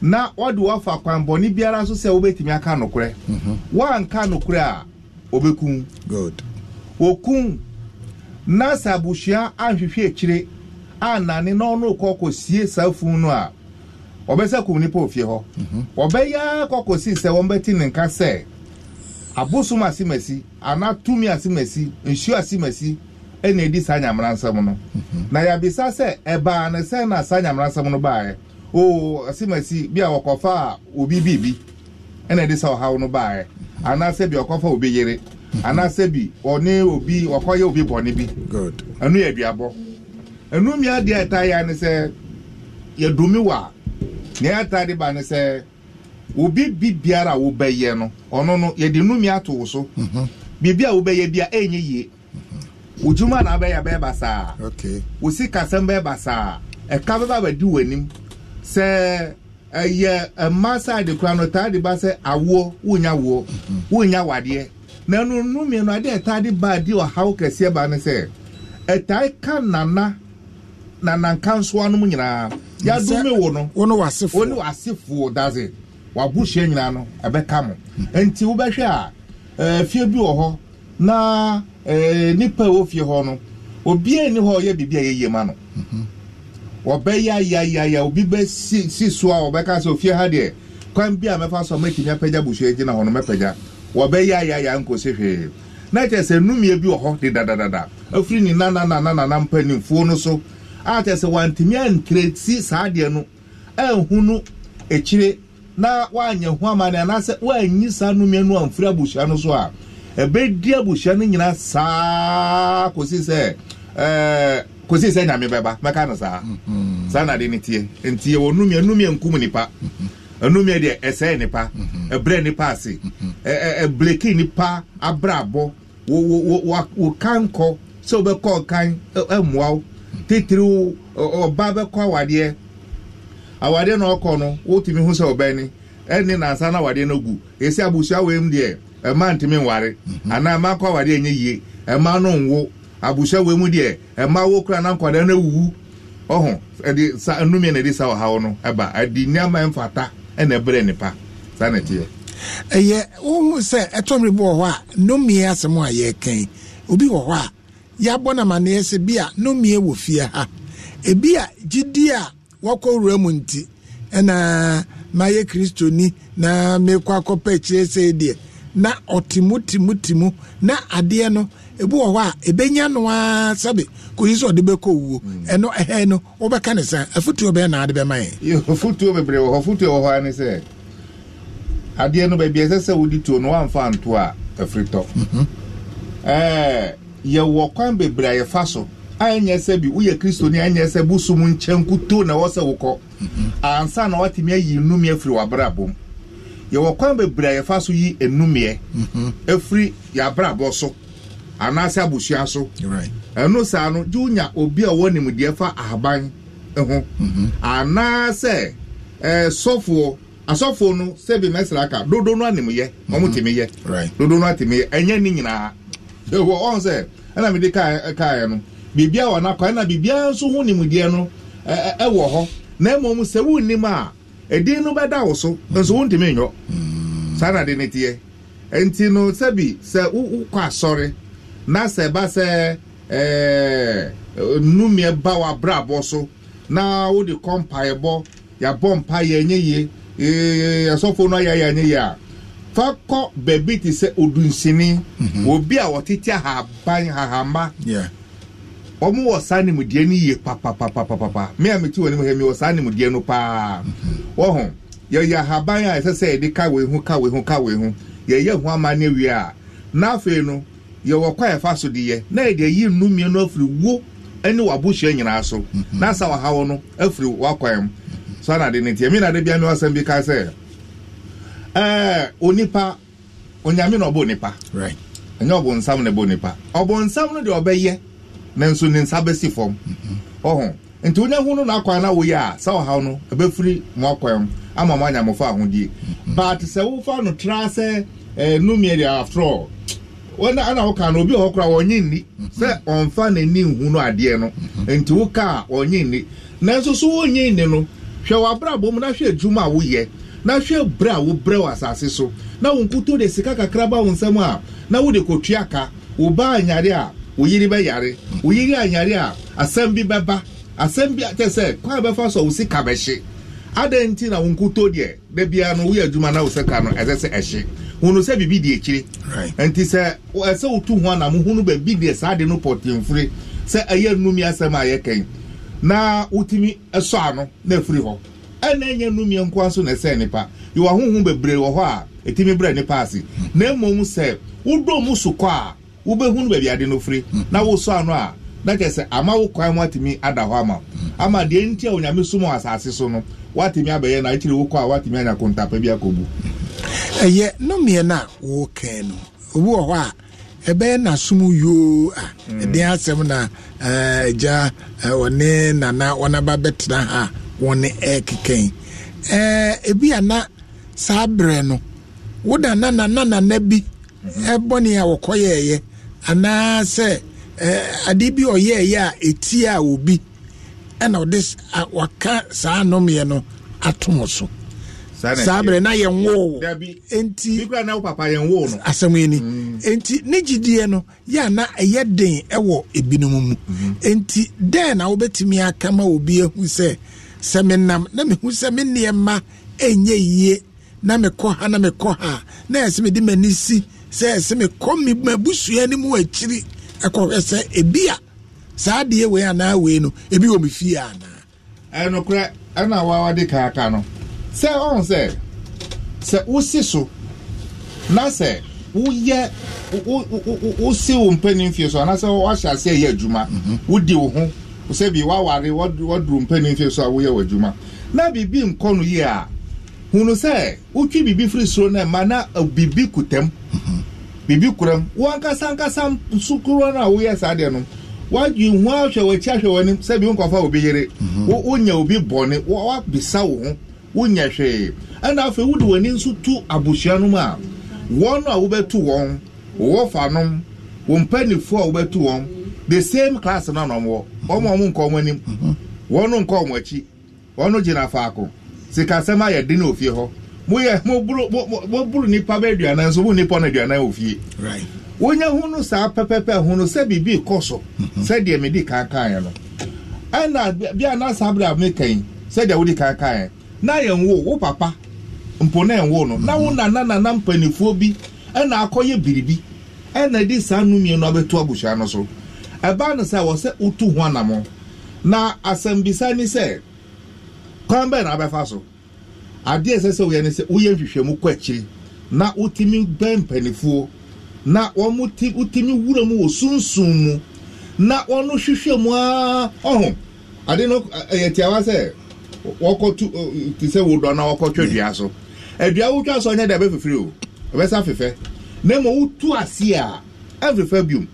na wɔde woafa kwanbɔne biara so sɛ wobɛtumi aka nokorɛ mhm. woanka nokorɛ a wɔbɛkum wɔkum na sɛ abusua anhwehwɛ akyire anane na ɔno kɔ kɔsie saa funu no a wɔbɛsɛ kum nipa ofie hɔ wɔbɛyɛ mhm. akɔ kɔsi sɛ wɔmbɛti ne nka sɛ abosom ase masi anaa tumi asimesi masi nsuo ase ɛna edi saa nyamara nsɛm no mhm. na yabisa sɛ ɛbaa ne sɛn na saa nyamara nsɛm no baaɛ. oo asimesi masi bi a wɔkɔfa a obi biribi ɛna edi saa ɔhaw no baeɛ mhm. anaasɛ bi ɔkɔfa obi yere mhm. anaasɛ bi ɔne obi ɔkɔyɛ obi bɔne bi ɛnu yɛ aduabɔ ɛnu mmea deɛ ɛtaa yɛ ne sɛ yɛdumi wa nea ɛtaa de ba ne sɛ. obi bi biara a wobɛyɛ no ɔno no yɛde numi ato wo so mhm. biribi a wobɛyɛ bia ɛnyɛ yie mhm. odwuma na abɛyɛ bɛyɛ basaa wo sikasɛm bɛyɛ basaa ɛka bɛba bɛdi w'anim sɛ ɛyɛ mma side kura no taa de ba sɛ awoɔ wonya woɔ mhm. wonya wadeɛ na ɛno numi no adeɛ ɛtaa de ba adi ɔhaw kɛseɛ ba ne sɛ ɛtaa ka nana nana nkansoa nom nyinaa yɛadome wo no wo ne w'asefoɔ wo ne w'asefoɔ daze w'agohyia nyinaa no ɛbɛka mo nti wobɛhwɛ a ɛɛ eh, fie bi wɔ hɔ na ɛɛ eh, nipa a ɛwɔ fie hɔ no obiara ni hɔ a ɔyɛ biribi a yɛyɛ ma no ɔbɛyɛ ayayaya obi bɛ si si so a ɔbɛka sɛ ofie ha deɛ kwan bi a mɛfa so a mɛtumi apagya busua gyina hɔ no mɛpagya wɔbɛyɛ ayayaya nkosi hwee na kyerɛ sɛ numie bi wɔ hɔ de dadadada afiri ne nanananana mpanimfoɔ no so a kyerɛ sɛ wantumi si saa adeɛ no ɛnhunu ekyire na waanyɛ ho ama no anaasɛ woanyi saa nnumia no amfiri abusua no so a ɛbɛdi abusua no nyinaa saa kosi sɛ eh, kosi kɔsi sɛ nyame bɛba mɛka no saa mm-hmm. saa na de ne tie nti yɛwɔ nnumia nnumia nkum nipa mm-hmm. nnumia deɛ ɛsɛɛ nipa mm-hmm. ɛbrɛ nipa ase ɛɛ ɛbleki nipa abrabɔ wo wo wo wo kan kɔ sɛ wobɛkɔ ɔkan ɛmoa wo titiriw ɔba bɛkɔ awadeɛ. awadeɛ na ɔkɔ no wotumi ho sɛ ɔbɛn ni ɛne nansa na awadeɛ no gu esi abusua wei mu deɛ ɛma ntumi nware mhm. anaa ɛma akɔ awadeɛ nye yie ɛma no nwo abusua wei mu deɛ ɛma wo kura na nkwadaa na ewu ɔho ɛde sa nnumia na ɛde sa ɔhaw no ɛba ɛde nneɛma mfata ɛna ɛbrɛ nipa saa na ɛteɛ. ɛyɛ ohun sɛ ɛtɔmri bi wɔ hɔ a nnumia asɛm a yɛrekɛn obi wɔ hɔ a yɛabɔ namaneɛ sɛ bia, a nnumia wɔ fie ha ebia, a gyidie a wɔkɔ wura mu nti ɛna mayɛ ni na mekɔ akɔpɛ akyire sei deɛ na ɔtemu na adeɛ no ebi wɔ hɔ a ebenya no aa sabi koyi sɛ ɔde bɛkɔ owuo mm. ɛno ɛhɛn no wɔbɛka ne sa afutuo bɛyɛ na ade bɛma yɛ. futuo bebree wɔ hɔ futuo wɔ hɔ ani sɛ adeɛ no baabi ɛsɛ sɛ wodi tuo no wamfa nto a afiri tɔ mhm. ɛɛ yɛwɔ kwan bebree a yɛfa so. anya sɛ bi woyɛ kristoni anya sɛ bosom nkyɛn kuto na ɛwɔ sɛ wokɔ ansa na watumi ayi nnumi afiri w'abrabɔ mu yɛwɔ kwan bebree a yɛfa mm-hmm. so yi nnumiɛ afiri yɛabrabɔ so anaasɛ abusua so ɛno saa no gye wonya obi a ɔwɔ nimdeɛ fa ahaban ho mm-hmm. anaasɛ eh, sɔfoɔ asɔfoɔ no sɛbi mɛsra aka dodo no animyɛ ɔmo mm-hmm. temi yɛ dodo no atemi yɛ ɛnyɛ ne nyinaa ɛwɔ ɔn sɛ ɛna mede kaa eh, kaeɛ no biribi a wɔ n'akwan na biribi nso ho nimdeɛ no ɛwɔ hɔ na mmom sɛ wonnim a ɛdin no bɛda wo so nso wontumi nyɔ mm. saa na de ne teɛ nti no sɛbi sɛ wokɔ asɔre na sɛ ɛba sɛ ɛɛ numiɛ ba w'abrabɔ so na wode kɔ mpaeɛbɔ yɛabɔ mpaeɛ ɛnyɛ yie ee asɔfo no ayɛ ɛnyɛ yie a fa kɔ baabi te sɛ odunsini mhm. obi a wɔtete ahaban ahamba. Yeah. wɔn wɔ saa nimudeɛ no yie papapapapa wɔ mi wɔ saa nimudeɛ no paa yɛyɛ ahaban a ɛsɛ sɛ yɛde ka wei ho ka wei ho ka wei ho yɛyɛ ho ama ne wie a n'afei no yɛwɔ kɔ ɛfa so deɛ na yɛde ayi afiri wo ɛne nyinaa so n'asa mhm. no afiri mu na de bi ka sɛ ɛɛ eh, onipa onyame na ɔbɔ onipa ɛnyɛ na nanso ne nsa bɛsi fam ɔho nti wonya ho no na akwan na woyɛ a sɛ ɔhaw no ɛbɛfiri mo akwan ama mo anya mofa ahodie but sɛ wofa no tra sɛ ɛnumie eh, deɛ after all wọn ana ọka na obi ọhọ kora ọnye nni sẹ ọnfa n'ani nhu no adeɛ no nti woka a ɔnye nni nanso so wɔnye nni no hwɛ w'abrabɔ mu na hwɛ adwuma a woyɛ na hwɛ brɛ a wobrɛ wɔ asase so na wɔn nkuto de sika kakra ba wɔn nsam a na wɔde kotua ka wɔba anyare a wo yiri bɛ yare wo yiri ayare a asɛm bi bɛba asɛm bi kyɛ sɛ kwan bɛfa so a wo sika bɛhye adan nti na wo nkuto deɛ da biara no woyɛ adwuma na wo sika no ɛsɛ sɛ ɛhye hunu sɛ biribi di akyire nti sɛ ɛsɛ wotu ho anam hunu baabi deɛ saa de no pɔtenfure sɛ ɛyɛ nnumi asɛm a yɛkɛn na wotumi ɛsɔ ano na afiri hɔ ɛna ɛnyɛ nnumi nkoa so na ɛsɛ nipa yɛwɔ ahohom bebree wɔ hɔ a ɛtumi brɛ nipa ase na mmom sɛ wodɔ mu so a wobɛhunu baabi ade no firi hmm. na woso ano a na kyerɛ sɛ ama wo kwan mu atumi ada hɔ ama hmm. ama deɛ nti a onyame som wɔ asase so no woatumi abɛyɛ na akyiri wokɔ a woatumi anya kontapa bi akɔbu hmm. ɛyɛ nomeɛ no a wɔka no obi wɔ hɔ a ɛbɛyɛ nasom yoo a ɛden asɛm na eh, gya eh, ɔne nana ɔnaba bɛtena ha wɔne ɛkekɛn eh, ebi ana saa berɛ no woda nanananana bi ɛbɔne a wɔkɔyɛɛyɛ anaasɛ ade bi ɔyɛɛyɛ a ɛtie a obi ɛna ɔde waka saa nnomeɛ no atom so saa berɛ na yɛnwoo enti asɛm ani mm. nti ne gyidie no yɛ na ɛyɛ den ɛwɔ ebinom mu mhm. nti dɛn na wobɛtumi aka ma obi ehu sɛ sɛ nam na mehu sɛ me nneɛma ɛnyɛ yie na mekɔ ha na mekɔ ha na ɛsɛ mede m'ani si sɛ sɛ mekɔ mabusua no mu akyiri ɛkɔhwɛ sɛ ebi a saa adeɛ wei anaa wei no ebi wɔ me fie anaa ɛnokorɛ ɛna wawade kaaka no sɛ ɔhu sɛ sɛ wosi so na sɛ woyɛ wosi wo mpanin fie so anaasɛ wahyɛ ase ɛyɛ adwuma mhm. wodi wo ho sɛ bi waware wɔduru mpanin so a woyɛ wɔ adwuma na biribi nkɔ no yie a hunu sɛ wotwi biribi firi soro no ma na eh, biribi kutam mhm. biribi kuram wankasa nkasa sukuro no a woyɛ saa deɛ no wadwi hu ahwɛ w'akyi ahwɛ w'anim sɛ bi nkɔfa obi yere mhm. wonya obi bɔne wabisa wo ho wonya hwee ɛna afei wode w'ani nso tu abusua no mu a wɔn a wobɛtu wɔn wɔwɔ fa nom wɔn mpanimfoɔ a wobɛtu wɔn the same class no na wɔn wɔ nkɔ wɔn anim mhm. wɔn nkɔ wɔn akyi wɔn gyina faako. sikasɛm ayɛ den ofie hɔ moyɛ moburu nipa bɛ aduanan nso mo nipa no aduanan wɔ fie wonya ho no saa pɛpɛpɛ ho no sɛ biribi kɔ so mhm. sɛdeɛ mede kankaeɛ no ɛna bia na saa berɛ a mekan sɛdeɛ wode kankaeɛ na yɛnwo wo papa mpo na ɛnwo no na wo mhm. nananana mpanifoɔ bi ɛna akɔyɛ biribi ɛna de saa nomiɛ no abɛto abusua no so ɛbaa no sɛ wɔ sɛ wotu ho anammɔ na asɛmbisa ni sɛ kwan bɛn na abɛfa so adeɛ ɛsɛ sɛ ne sɛ nhwehwɛmu kɔ akyiri na wotumi bɛn mpanifoɔ na wɔn ti wura mu wɔ sunsun mu na wɔn hwehwɛ mu aa ɔho ade no ɛyɛ tiawa sɛ wɔkɔ tu ti sɛ na wɔkɔ twɛ dua so wotwa so ɔnyɛ o na wotu ase a ɛfɛfɛ biom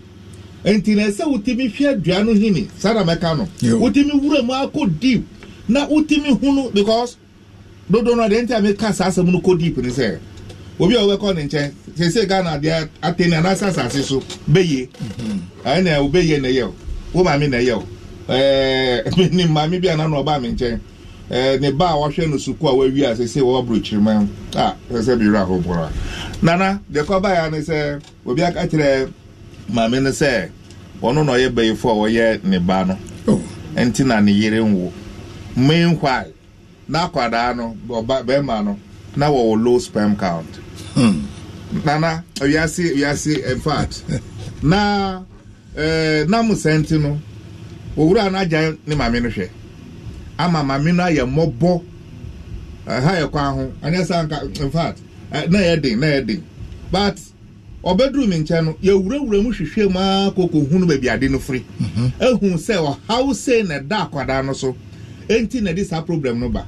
nti ɛsɛ wotumi hwɛ dua no hini no wura mu akɔ deep na wotumi hunu because dodo no deɛ nti a ka saa asɛm no kɔ deep ne sɛ obi a wobɛkɔ mhm. ne nkyɛn sɛsɛ ghana deɛ atene anaasɛ asase so bɛye ɛna wobɛye na ɛyɛ wo maame na ɛyɛ ɛɛ ne maame bi ana na ɔbaa me nkyɛn eh, ɛɛ ne ba a wɔhwɛ no sukuu a wawi a sɛsɛ wɔwɔ aburokyiriman a sɛsɛ bi wura ahobora nana deɛ kɔbaa ya ne sɛ obi aka kyerɛ maame no sɛ ɔno na ɔyɛ bɛyifo a ɔyɛ ne ba no oh. nti na ne yere nwo meanwhile n'akwada no bɛrima no na wɔwɔ low sperm count hmm. nana wiase oh, wiase in fact <laughs> na ɛɛ eh, sentinu no owura no agya ne maame ama maame no ayɛ mmɔbɔ ɛha ha kwan ahu anyɛ sanka in fact na edin den na yɛ but ɔbɛduru mi nkyɛn no yɛwurawura mu hwehwɛ mu aa koko hunu baabi ade no firi mhm. ehu sɛ ɔhaw sɛ na ɛda akwadaa no so. enti na ɛde saa problem no ba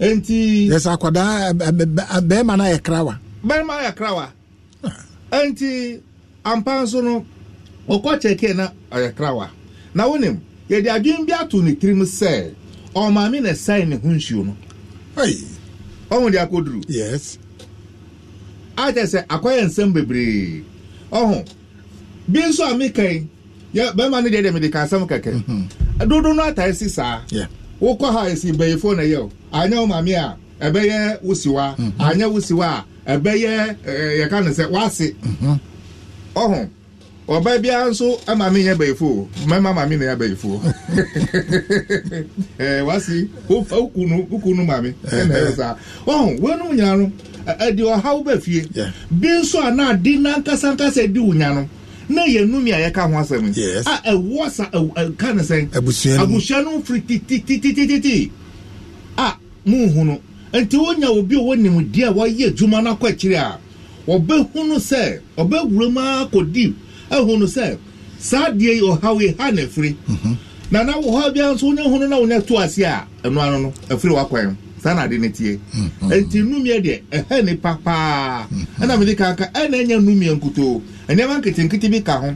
enti. yɛsɛ akwadaa eh, eh, eh, bɛrima na ayɛ krawa. bɛrima ayɛ krawa ah. enti ampa nso no ɔkɔ kyɛkɛ na ɔyɛ krawa na wɔnim yɛde adwene bi ato ne tirim sɛ ɔmaame na ɛsɛn ne ho nsuo no. ɔmo de akɔduru. yes. akyɛ sɛ akɔyɛ nsɛm bebree ɔho bi nso a mi kan yɛ bɛrima no deɛ deɛ mi de ka asɛm kɛkɛ mhm. dodo no atae si saa. Yeah. wokɔ ha esi bɛyifo na yɛ o anya wo maame a ɛbɛyɛ wusiwa mhm. anya wusiwa a ɛbɛyɛ ɛɛ eh, eh, yɛka no sɛ wase mhm. ɔho ɔbaa biara nso maame yɛ bɛyifo mmarima maame na yɛ bɛyifo ɛɛ <laughs> eh, wasi wofa ukunu ukunu maame ɛna ɛyɛ saa ɔho wɔnum nyinaa no ɛdi ɔhaw bɛ fie bi nso a na adi nankasankasa di wunya no. na yɛn numi a yɛka ho asɛm a ɛwɔ sa ɛka ne sɛn abusua no firi tititititi a mu hu no nti wonya obi a wɔnim di a wɔyɛ adwuma no akɔ akyire a wɔbɛhunu sɛ ɔbɛwura mu akɔdi ahunu sɛ saa deɛ yi ɔhaw yi ha na afiri mhm. na wɔ hɔ biara nso wonya hunu na wonya to ase a ɛno ano no afiri wakwan mu. saa na ade ne tie mhm. nti nnumia deɛ ɛhɛ ne papaa mhm. ɛna mede kanka ɛna ɛnya nketenkete bi ka ho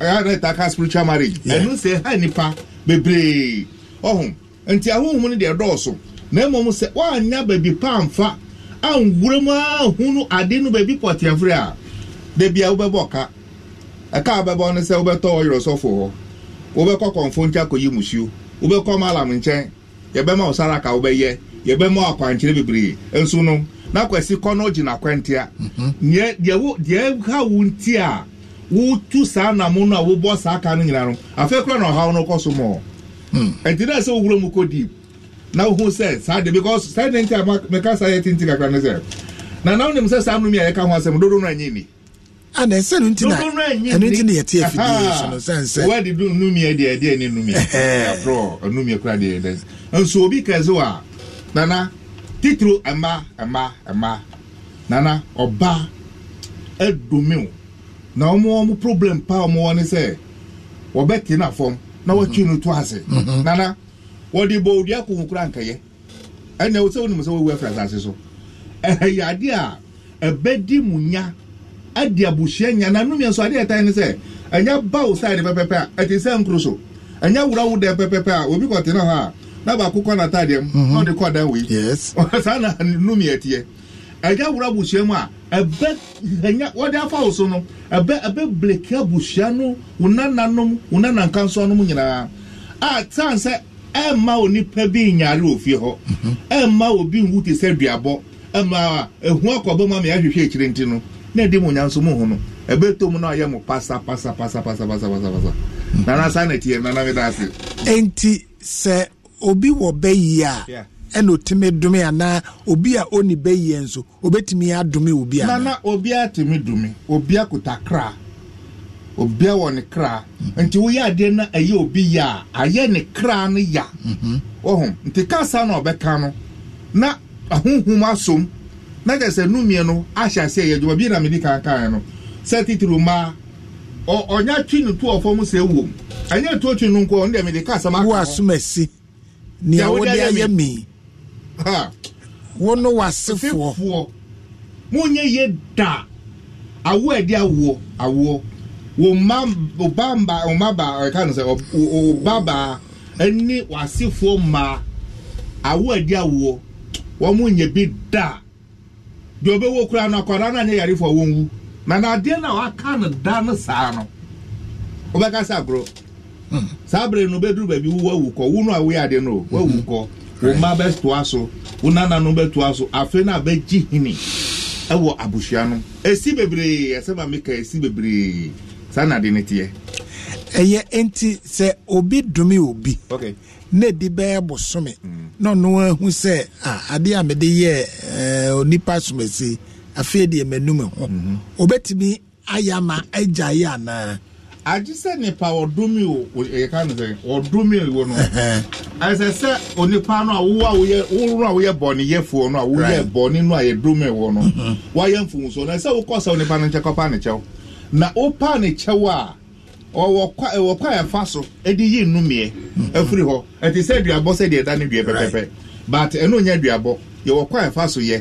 ɛtaka spiritual marriage ɛno sɛ ɛhɛ nipa bebree ɔho nti ahohom no deɛ dɔɔso na mmom sɛ woanya baabi pa amfa anwura mu ade no baabi a a wobɛbɔ ka ɛka wobɛbɔ no sɛ wobɛtɔ hɔ wobɛkɔ nkyɛ akɔyi musuo wobɛkɔ malam nkyɛn yɛbɛma wo saraka wobɛyɛ yɛbɛma akwankyerɛ bebree nso no na kwasi kɔ no gyina akwantia mhm. deɛ deɛ ha wo nti a wotu saa namo no a wobɔ saa ka no nyina no afei kora na ɔhaw no kɔ so mɔ ɛnti hmm. dɛ sɛ wowura mu kɔ deep na wohu sɛ saa de because saa de nti a meka saa yɛ tenti kakra no sɛ na na wonim sɛ saa nomi a yɛka ho asɛm dodo no anyi ni ana ah, ɛsɛ no ntina ɛno na yɛte afidie so no sɛn sɛ wɔde du numia deɛ ɛdeɛ ne numia afrɔ numia kora deɛ nso obi kɛse a nana titiri ɛma ɛma ɛma nana ɔba ɛdomiw na wɔn wɔn problem pa wɔn wɔn sɛ wɔbɛ te na fam na wɔtwi no to ase nana wɔde bɔ odua kò nkura nkɛyɛ ɛnna wɔsɛ wɔn nimusɛ wɔwu ɛfra asase so ɛyɛ adeɛ a ɛbɛdi mu nya ɛdi abusua nya na num yɛn so adeɛ ɛtan ne sɛ ɛnya bawo saadi pɛpɛpɛ a ɛte sɛ nkuro so ɛnya wurawo dɛ pɛpɛpɛ a obi kɔ te na hɔ a na baako kɔ n'ataadeɛ mu mhm. na ɔde kɔ dan wei yes <laughs> saa na num yɛ teɛ ɛgya wura busua mu a ɛbɛ ɛnya wɔde afa wo so no ɛbɛ ɛbɛ bleke busua no wo nananom wo nanankansoanom nyinaa a tan sɛ ɛmma onipa bi nyaare wɔ fie hɔ mhm. ɛmma obi nwu te sɛ duabɔ ɛmma ehu akɔbɔ mu ama yɛahwehwɛ akyire nti no na ɛdi mu nyanso mu ho no ɛbɛ to mu na ɔyɛ mu pasa pasa pasa pasa pasa pasa pasa mhm. nana saa na ti yɛ nana mi da ase. eti sɛ. obi wɔ bɛyie a ɛna otumi dumi anaa obi a ɔni bɛyie nso obetumi adumi obi a. nana obiara tumi dumi obiara kuta kra obiara wɔ ne kra nti woyɛ adeɛ na ɛyɛ obi ya a ayɛ ne kra no ya ɔhun mhm. nti kaasa na ɔbɛka no na ahuhum asom na kyerɛ sɛ numie no ahyɛ aseɛ yɛ adwuma bi na mi di kankan no sɛ titiri mmaa ɔnya twi ne tu ɔfɔm sɛ ewom ɛnyɛ tu otwi no nkɔ ɔno deɛ mi di kasa ma kɔ. wo asum esi. nea wode ayɛ me wo no wasefoɔ monyɛ yɛ da awo ɛde awoɔ awoɔ wo ma wo ba mba ma ba ɛka no sɛ wo ba ba ɛne wasefoɔ mmaa awo ɛde awoɔ wɔn mo nyɛ bi da deɛ ɔbɛwɔ kura na akwadaa na na no saa bere no bɛduru baabi wo wawu kɔ wo no a woyɛ no wawu kɔ wo mma bɛtoa so wo nana no bɛtoa so afei na a bɛgye hini ɛwɔ abusua no esi bebree ɛsɛ ma mi ka esi bebree saa na de ne teɛ. ɛyɛ nti sɛ obi dumi obi na edi bɛyɛ bosome na ɔno ahu sɛ adeɛ a mede yɛ ɛɛ onipa somasi afei deɛ mɛnum ho mhm. obetumi ayama agya yɛ anaa. agyesɛ nipa ɔdumi o eh, yɛka no sɛ no onipa no a wowɔ a woyɛ woworo a woyɛ bɔne yɛfoɔ no a woyɛ bɔne no a yɛdumi wɔ no mm-hmm. na ɛsɛ wokɔ sɛ onipa no nkyɛ kɔpa ne kyɛw na wopa ne kyɛw a ɔwɔ kwa ɛwɔ kwa ɛfa yi ɛfiri mm-hmm. hɔ sɛ sɛ deɛ ɛda ne pɛpɛpɛ but ɛno nyɛ yɛwɔ kwa ɛfa so yɛ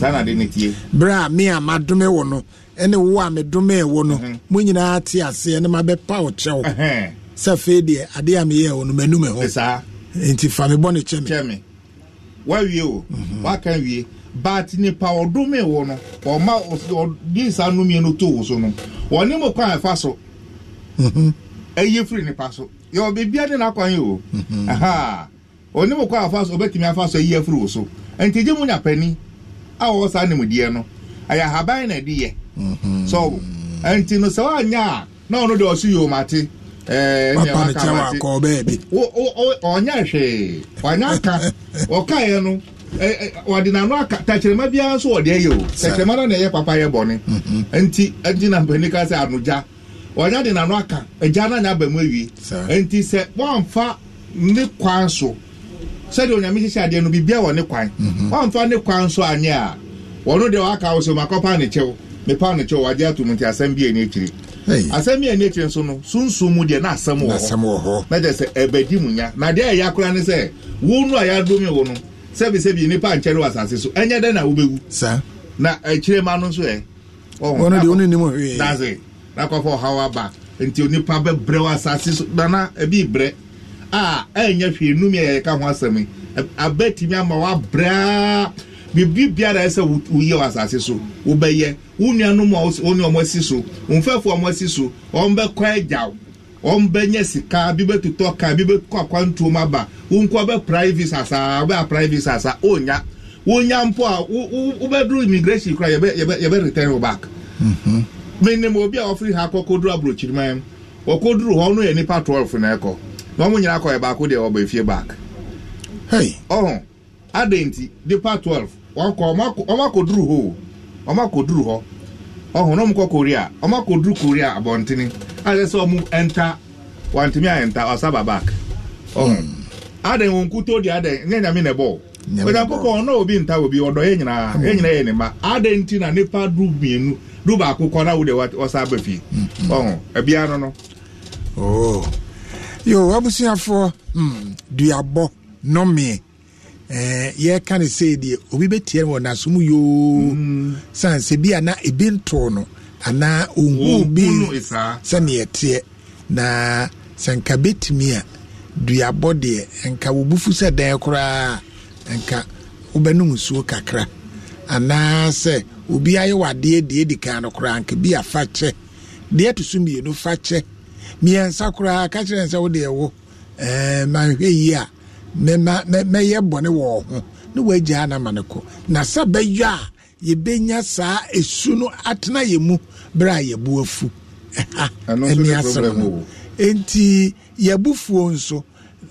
saa na de ne tie berɛ a me a madome wo no ɛne wo a medome wo no mhm. mo nyinaa te aseɛ ne mabɛpa wo kyɛw sɛ afei deɛ adeɛ a meyɛ wo no manum hɔ nti fa mi bɔ ne kyɛ me wawie o mhm. waka wie but nipa ɔdome wo no ɔma ɔde saa nomie no too wo so no ɔne mu kwan ɛfa so mhm. ɛyɛ firi nipa so yɛwɔ beebia de n'akwan yi o ɔne mu kwan afa so ɔbɛtumi afa so ɛyɛ firi wo so nti gye mu nyapani a wɔwɔ saa nimdeɛ no ɛyɛ ahaban na ɛde yɛ mhm. so nti no sɛ woanyɛ a na ɔno deɛ ɔso o ɔnyɛ hwee ɔnyɛ aka <laughs> ɔkaeɛ no wɔde n'ano aka tɛkyerɛma biara nso wɔde ayɛ o tɛkyerɛma no na ɛyɛ papa yɛ bɔne mhm. nti nti na mpanin ka sɛ anogya ɔnyɛ de n'ano aka agya no anyɛ aba mu awie nti sɛ wɔamfa ne kwan so sɛdeɛ onyame hyehyɛ adeɛ no biribia wɔ ne kwan mhm. wamfa ne kwan nso anyɛ a wɔno deɛ waka wo sɛ makɔpa ne kyɛw mepa ne kyɛw wagye ato mu nti asɛm bi ani akyiri asɛm bi ani akyiri nso no sunsum mu deɛ na asɛm wɔ hɔ na kyɛ sɛ mu nya na deɛ ɛyɛ akora ne sɛ wo no a yɛadome wo no sɛbisɛbi nipa nkyɛre wɔ asase so ɛnyɛ dɛn na wobɛwu na akyire ma no nso ɛ ɔno na kɔfa ɔhaw aba nti onipa bɛbrɛ wɔ asase so nana ɛbi a ɛnyɛ hwee num yɛ yɛka ho asɛm yi abɛtumi ama wabraa biribi biara ɛsɛ woyɛ wɔ asase so wobɛyɛ wo nuanom a wo ne ɔmo asi so mfɛfo ɔmo asi so ɔmo bɛkɔ agyaw ɔmo bɛnyɛ sika bi bɛtotɔ ka bi bɛkɔ akwantuom aba wo nko ɔbɛprae visa saa wobɛaprae visa saa ɔnya wonya mpo a wobɛduru immigration kora yɛbɛ return wo back mhm. menim obi a ɔfiri ha kɔ kɔduru aburokyiriman wɔkɔduru hɔ no yɛ nipa 12 na ɛkɔ wɔn nyere nyinaa kɔɛ baako deɛ ɔba efie back. ɔhun adan ti depa twelve wakɔ ɔmo akɔduru hɔ ɔmo akɔduru hɔ ɔhun na ɔmo kɔ korea ɔmo akɔduru korea abɔntene ayɛ sɛ ɔmo ɛnta wantumi ayɛnta ɔsaba back. ɔhun hmm. adan wɔn kuto di adan nyɛ nyame na ɛbɔ ɔdankokɔ ɔno obi nta obi ọdọ yɛ nyinaa ya nyinaa yɛ ne ma adan na nipa du mmienu du baako kɔ na wo de aba fie ɔhun ɛbia no no. yo abusuafoɔ mm, duabɔ nɔmeɛ eh, yɛka no sei deɛ obi bɛtiɛ no wɔ nasom yoo mm. sane bi ana ebi ntoo no anaa ɔhuu bi sɛneɛ teɛ na sanka nka bɛtumi a duabɔ deɛ nka wɔbufu sɛ dɛn koraa nka wobɛnom nsuo kakra anaasɛ obi ayɛ wadeɛ deɛ di kan no koraa nka bi afa kyɛ deɛ to so mmienu fa kyɛ mmiɛnsa koraa ka kyerɛ sɛ wode ɛwo mahwɛ yi a mɛyɛ bɔne wɔ ho na woagyaa na ma no kɔ na sɛ bɛyɛ a yɛbɛnya saa ɛsu no atena yɛ mu berɛ a yɛbo afu ɛha ɛne asɛm no enti yɛabufuo nso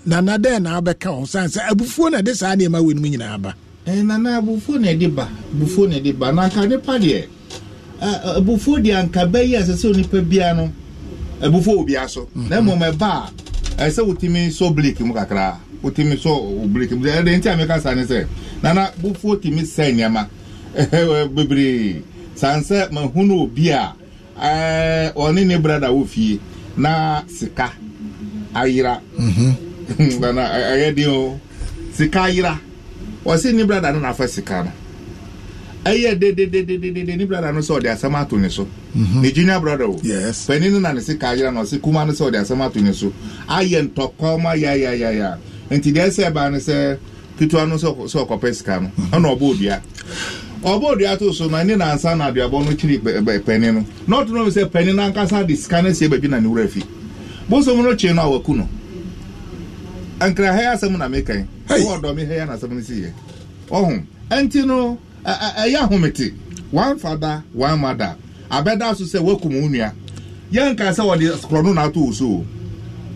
nana dɛn na abɛka ho sane sɛ abufuo na ɛde saa nneɛma wɔ no mu nyinaa ba nana abufuo na ɛde ba abufuo na ɛde ba na anka nipa deɛ abufuo deɛ anka bɛyi a onipa biara no ɛbufo obi aso na mmom ɛba a ɛsɛ wotumi so blake mu kakra wotumi so blake mu ɛdɛ nti a meka ne sɛ nana bufo tumi sɛ nneɛma ɛɛ <laughs> bebree sansɛ mahunu obi a ɛɛ ɔne ne brada wɔ fie na sika ayira nana ɛyɛ den o sika ayira wɔsi ne brada no na afɛ sika no. ɛyɛ dedededede ni brada no sɛ ɔde asɛm ato ne so ne junior brada o panin no na ne se ka ayera na ɔse kuma no sɛ ɔde asɛm ato ne so ayɛ ntɔkɔma yayayaya nti deɛ ɛsɛ ɛbaa no sɛ ketewa no sɛ ɔkɔpɛ sika no ɛna ɔbɔ odua ɔbɔ odua to so na ne nansa na aduabɔ no kyiri panin no na ɔto no sɛ panin no ankasa de sika no sie baabi na ne wura fi bosom no kye no a waku no nkra ha asɛm na mekan wɔ ɔdɔ me ha na asɛm no si yɛ ɔho ɛnti no ɛyɛ ahomete one father one mother abɛda so sɛ wakum wo nua yɛnka sɛ wɔde korɔno na ato wo so o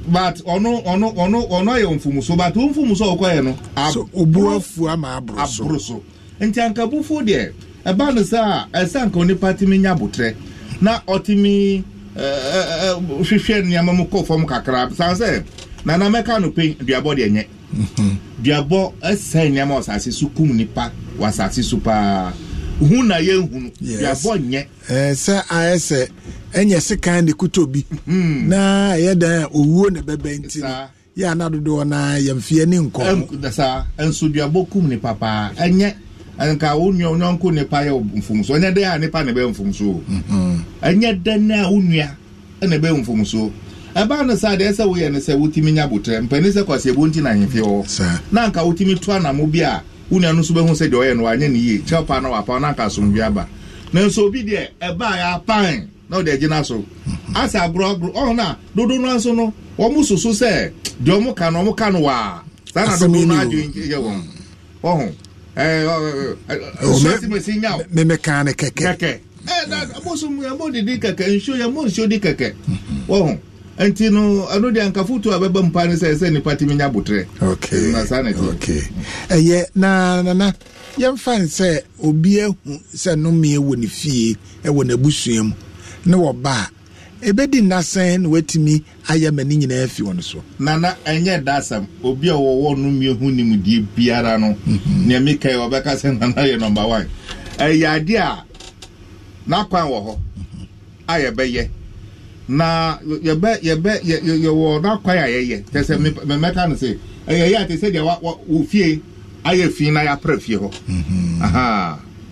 but ɔno ɔno ɔno ɔno ayɛ so but wɔn mfumuso a ɔkɔyɛ no. so obu afu ama aboro so aboro so nti ankabufo deɛ ɛba no sɛ a ɛsɛ anka onipa timi nya abotire na ɔtimi ɛɛ ɛɛ hwehwɛ nneɛma mu kɔ fam kakra san sɛ nana mɛka no pe duabɔ deɛ nyɛ. duabɔ ɛsɛn nneɛma ɔsaase so kum nipa wasaase so paa hu na yɛ hu no duabɔ nyɛ. ɛɛ ayɛ sɛ ɛnyɛ sekan de kuto bi hmm. na ɛyɛ dan a owuo na bɛbɛ nti no yɛ ana dodoɔ na yɛmfie ne nkɔmɔ. saa nso duabɔ kum nipa paa ɛnyɛ nka wo nua nyɔnko nipa yɛ mfomso ɛnyɛ dɛ a nipa na bɛ mfomso mm-hmm. ɛnyɛ dɛ na wo nua ɛna bɛ mfomso. ɛbaa no sɛ woyɛ no sɛ wotumi nya kwasi nti na wɔ na anka wotumi to bi a wo no nso bɛhu sɛ deɛ ɔyɛ no wanyɛ na wapa na anka asomdwe aba nanso obi deɛ ɛbaa yɛapan na ɔde agyina so mhm. asɛ agorɔagorɔ ɔho dodo oh no nso no wɔn mo soso sɛ deɛ ɔmo ka no ɔmo ka no waa saa na dodo no adwe yɛ wɔn ɔho ɛɛ ne na eh, mo so nti no ɛno deɛ anka foto a bɛba mpa no sɛ sɛ nipa tumi nya botrɛ ɛyɛ na nana yɛmfa no sɛ obi ahu sɛ nomeɛ wɔ ne fie ɛwɔ n'abusua mu ne ba a ɛbɛdi nnasɛn na watumi ayɛ ma ne nyinaa fi wɔ no so nana ɛnyɛ dasɛm obi a wɔwɔ nomeɛ ho nimdeɛ biara no mhm. nea mekae wɔbɛka sɛ <laughs> nana yɛ number one ɛyɛ adeɛ a n'akwan wɔ hɔ mhm. a yɛbɛyɛ na yɛbɛ yɛbɛ yɛ yɛwɔ n'akwa yɛ ayɛyɛ tɛ sɛ mɛmɛka no sɛ ɛyɛyɛ a te sɛ deɛ wa wa ofie ayɛ fi na yɛapra fie hɔ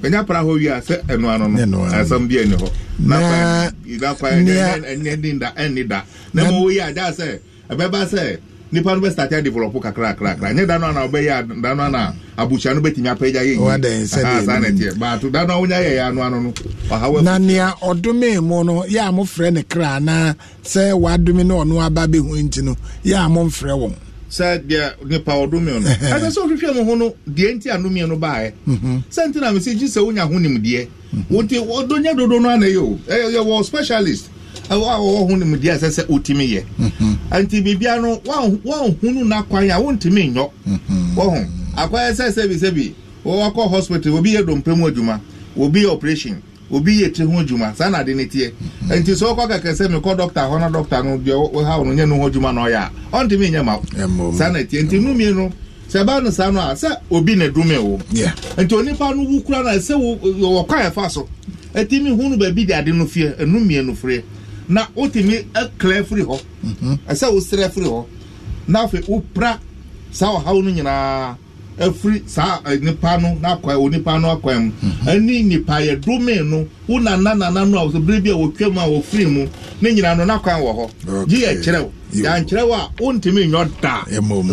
bɛnya pra hɔ wie a sɛ ɛnoa no no ɛsɛm bi ani hɔ n'akwa yɛ n'akwa yɛ ɛnni da ɛnni da na ma wo yi a da sɛ ɛbɛba sɛ nipa no bɛstate kakra kakra ɛnyɛ da no ana wobɛyɛ da no ana abusua no bɛtumi apagya yɛyisanɛteɛ but da no a wonya yɛyɛ ano ano no na nea ɔdome mu no yɛ a mofrɛ ne kra anaa sɛ wadome na ɔno aba bɛhu nti no yɛ a momfrɛ wɔn sɛ deɛ nipa ɔdome no <laughs> ɛsɛ sɛ wohwehwɛ mo ho no deɛ nti anomeɛ no baɛ mhm. sɛ nti na mesɛ gye sɛ wonya ho nimdeɛ wonti ɔdɔnya dodo no anayɛ o ɛyɛ wɔ specialist ɛwɔ awɔ hu no mu deɛ ɛsɛ sɛ wotumi yɛ mhm. nti biribia no wɔnhunu n'akwan a wontumi nyɔ mhm. wɔho akwan sɛ sɛbi sɛbi wɔwɔkɔ hospital obi yɛ dompe mu adwuma obi yɛ operation obi yɛ tiri ho adwuma saa na ne mhm. nti sɛ kɛkɛ sɛ hɔ na no deɛ ɔha nyɛ no ho adwuma na ɔyɛ a saa na nti no sɛ ɛbaa no a sɛ obi na edume nti onipa no na wotumi ɛkla eh, firi hɔ mhm. ɛsɛ wosrɛ firi hɔ na afei wopra saa ɔhaw no nyinaa afiri eh, saa eh, nipa no n'akwan onipa no akwan mu mhm. ɛne nipa yɛ domin no wo nana nana no a bere bi a wotwa mu a wofiri mu ne nyinaa no n'akwan wɔ hɔ gye yɛ kyerɛw yankyerɛw a wontumi nyɔ daa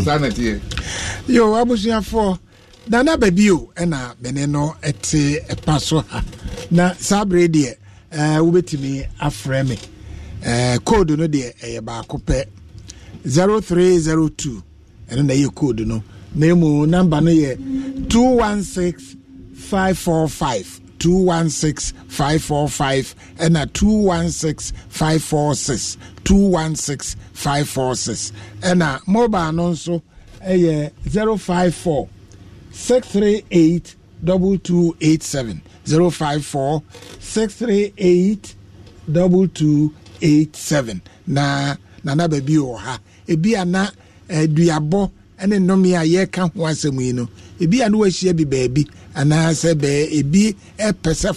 saa na teɛ. yo abusuafoɔ nana baabi o ɛna bene no ɛte ɛpa so ha na saa bere deɛ ɛɛ wobɛtumi afrɛ mi. Eh, code no deɛ ɛyɛ baako pɛ 0302 ɛno na ɛyɛ code no na emu namba no yɛ 216545 216545 ɛna 216546 216546 ɛna mobile no nso ɛyɛ 054 638 2287 054 638 2287 87 na nana baabi wɔ ha ebi ana na aduabɔ eh, ne nnome a yɛreka ho asɛm yi no ebi a na wahyia bi baabi anaasɛ bɛɛ ebi pɛ sɛ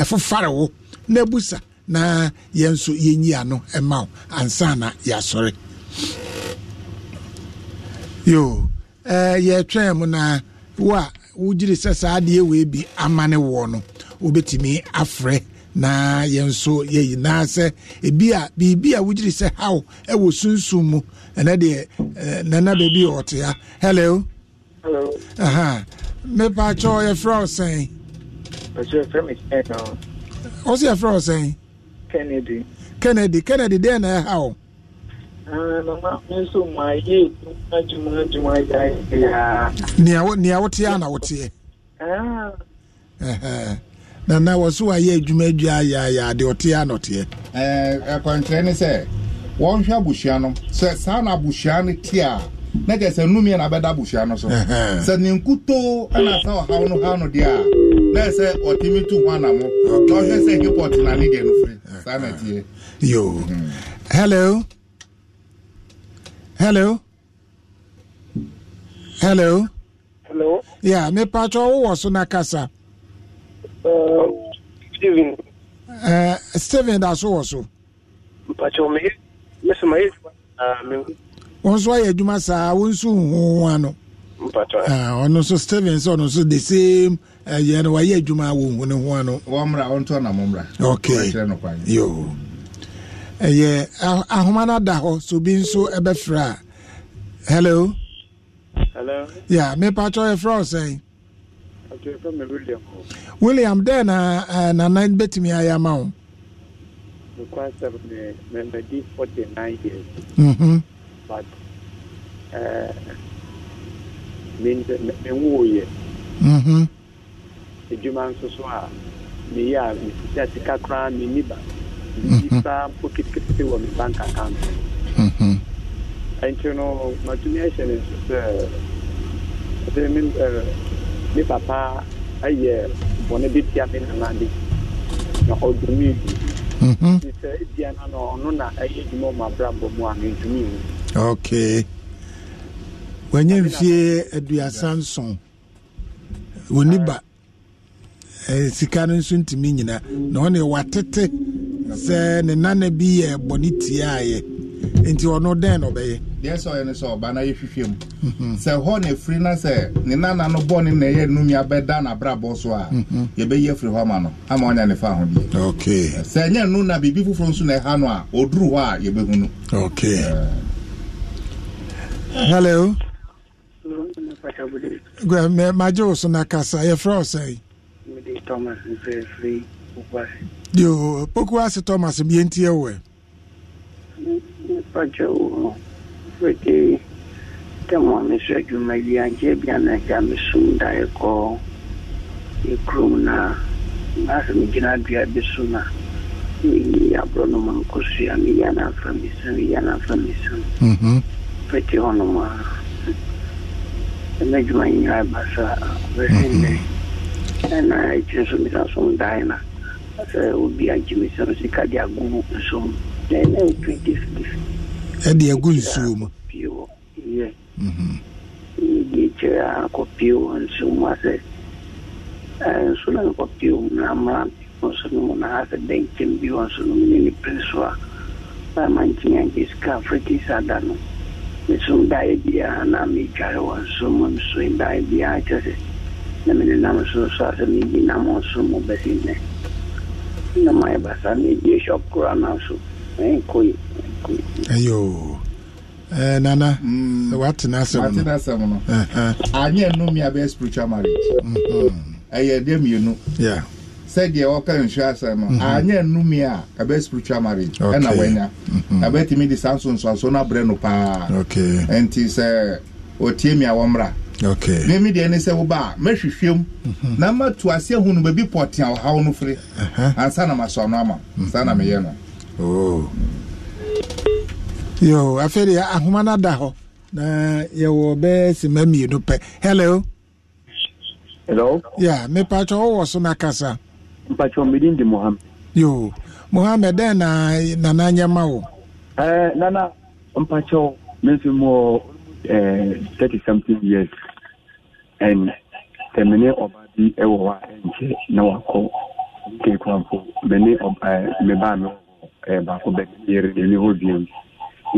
ɛfofare wo na abusa na yɛn nso yɛnyi ano ma wo ansa na yɛasɔre ɛɛ eh, yɛtwɛn mu na wo a wogyere sɛ saa adeɛ wei bi amane wɔ no wobɛtumi afrɛ 0244 na yɛn nso yɛ nyinaa sɛ ebi a biribi a wogyiri sɛ haw ɛwɔ sunsun mu ɛnɛ deɛ nana baabi a ɔte ha hello. hello. mepa kyɛ yɛfrɛ wo sɛn. ɔsɛ yɛfrɛ wo sɛn. kennedy. kennedy kennedy deɛ na ɛha ah, wo. nea woteɛ a na woteɛ. Ah nana wɔso ayɛ adwuma adua ayɛayɛ ade ɔteɛ anɔteɛ ɛkwankyerɛ ne sɛ wɔnhwɛ abusua no sɛ saa na abusua no te a na kyɛ sɛ nomiɛ na bɛda abusua no so sɛ ne nkutoo ɛna sɛ ɔhaw no haw no deɛ a na ɛ sɛ ɔtumi to ho anamo na ɔhwɛ sɛ hipɔt na ne deɛ no firi saa na tiɛ yo hello hello hello hello yeah me mepatwɛ wowɔ so na kasa steven uh, steven da so wɔ so mpakyɛw meyɛ meso mayɛ wɔn nso ayɛ adwuma saa wɔn nso ano eh, ɔno nso steven sɛ ɔno nso the same eh, no wayɛ adwuma ne ano na okay yo ɛyɛ ah, ahoma na ada hɔ so bi nso ɛbɛfrɛ hello hello yeah mepakyɛw yɛfrɛ wo william william dɛn na uh, nana bɛtumi ayɛ ama wo nokwasɛm ne mamadi 49 years mm-hmm. but uh, menwoyɛ adwuma mhm. nso so a meyɛ a mesisa sika koraa menni ba mhm. medi koraa mpo ketekete wɔ me bank account ɛnti mhm. no matumi ahyɛ ne nso sɛ ɛde ne papa ayɛ bɔne bi tia me nana de na ɔdumi bi sɛ ebia na na ɔno na ɛyɛ adwuma ɔma abrabɔ mu a mentumi wu mhm. okay wanya mfie aduasa nson wɔni ba eh, sika no nso ntumi nyina na ɔne watete sɛ ne nana bi yɛ bɔne tiaeɛ nti ɔno dɛn na ɔbɛyɛ. deɛ sɛ ɔyɛ no sɛ ɔba na yɛ hwehwɛ mu sɛ hɔ na efiri na sɛ ne nana no bɔ ne na ɛyɛ num ya na n'abrabɔ so a yɛbɛyi efiri hɔ ama no ama ɔnya ne fa ahodeɛ. okay sɛ ɛnyɛ num na biribi foforɔ nso na ɛha no a oduru hɔ a yɛbɛhu no. okay hello. gbẹ magye wo so na kasa yɛfrɛ ɔsɛn. mede thomas mfrɛ yoo pokuase thomas bi yɛn ti yɛ pačiau vaikai temomis žodžiu mėlyje vieną žemę sunda į ko į krūmną mes mėginame abi sūną abro no mankosu ya miyana famisa miyana famisa pete ono ma ɛna adwuma nyinaa ba saa bɛsɛ nnɛ ɛna ɛkyerɛ so mesa so ndae na sɛ obi agye me sɛ ɛde agu nsuo mu kyerɛ mhm. akɔpie wɔ nsuo mu asɛ eh, nso na nkɔpie mu na mmara wɔ na asɛ bɛnkyɛm bi wɔ nso no mu ne ne pere so a bɛma nkyɛn ankyɛ sika afiriki sa da na metware wɔ nsuo mu nso daeɛ biara kyerɛ na mene nam nso so asɛ mebi nam nso mu bɛsi na mayɛ basa mebi shop koraa na nso eh, ɛnkɔ ayo eh, nana mm. watena asɛm no n'o. Eh, eh. anyɛ nnomi abɛyɛ spiritual marriage ɛyɛ mm-hmm. deɛ mmienu sɛdeɛ wɔka nsuo asɛm no mm-hmm. anyɛ nnumi a ɛbɛ spiritual marriage ɛna wanya ɛbɛtumi mm-hmm. de saa nsonsoaso no abrɛ no paa ɛnti sɛ ɔtie mi a wɔmmra mimi deɛ ne sɛ woba a mɛhwehwɛm na matu ase ahu no baabi pɔtea ɔhaw no firi ansa na masɔ no ama saa na meyɛ no oh. yo afei deɛ ahoma no da hɔ na yɛwɔ bɛɛ sima mmienu pɛ hello hello ya yeah, mepakyɛ wowɔ so na kasa mpakyɛ midin di mohammed yo mohammed dɛn e na nana nyɛ ma wo eh, nana mpakyɛ menso mu eh, thirty something years and sɛmene ɔba bi wɔ hɔ a ɛnkyɛ na wakɔ keekuampo mene mebaa eh, me baako eh, bɛyere ne hɔ biam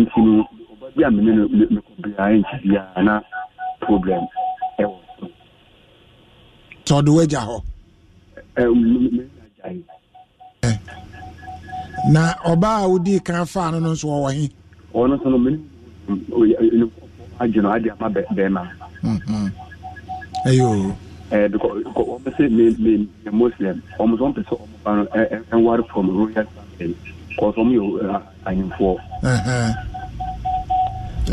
nti no obi a mene no mekɔ biara nkyi biara na problem ɛwɔ so tɔde wagya hɔ na ɔbaa a wodii kan faa no no nso wɔwɔ he ɔno so no mene um, no ade ama bɛrima ɛyɛ mm-hmm. eh, because wɔm me muslim ɔmo sɛ ɔmpɛ sɛ ɔmo no eh, eh, ɛnware from royal family because yɛ ahemfoɔ.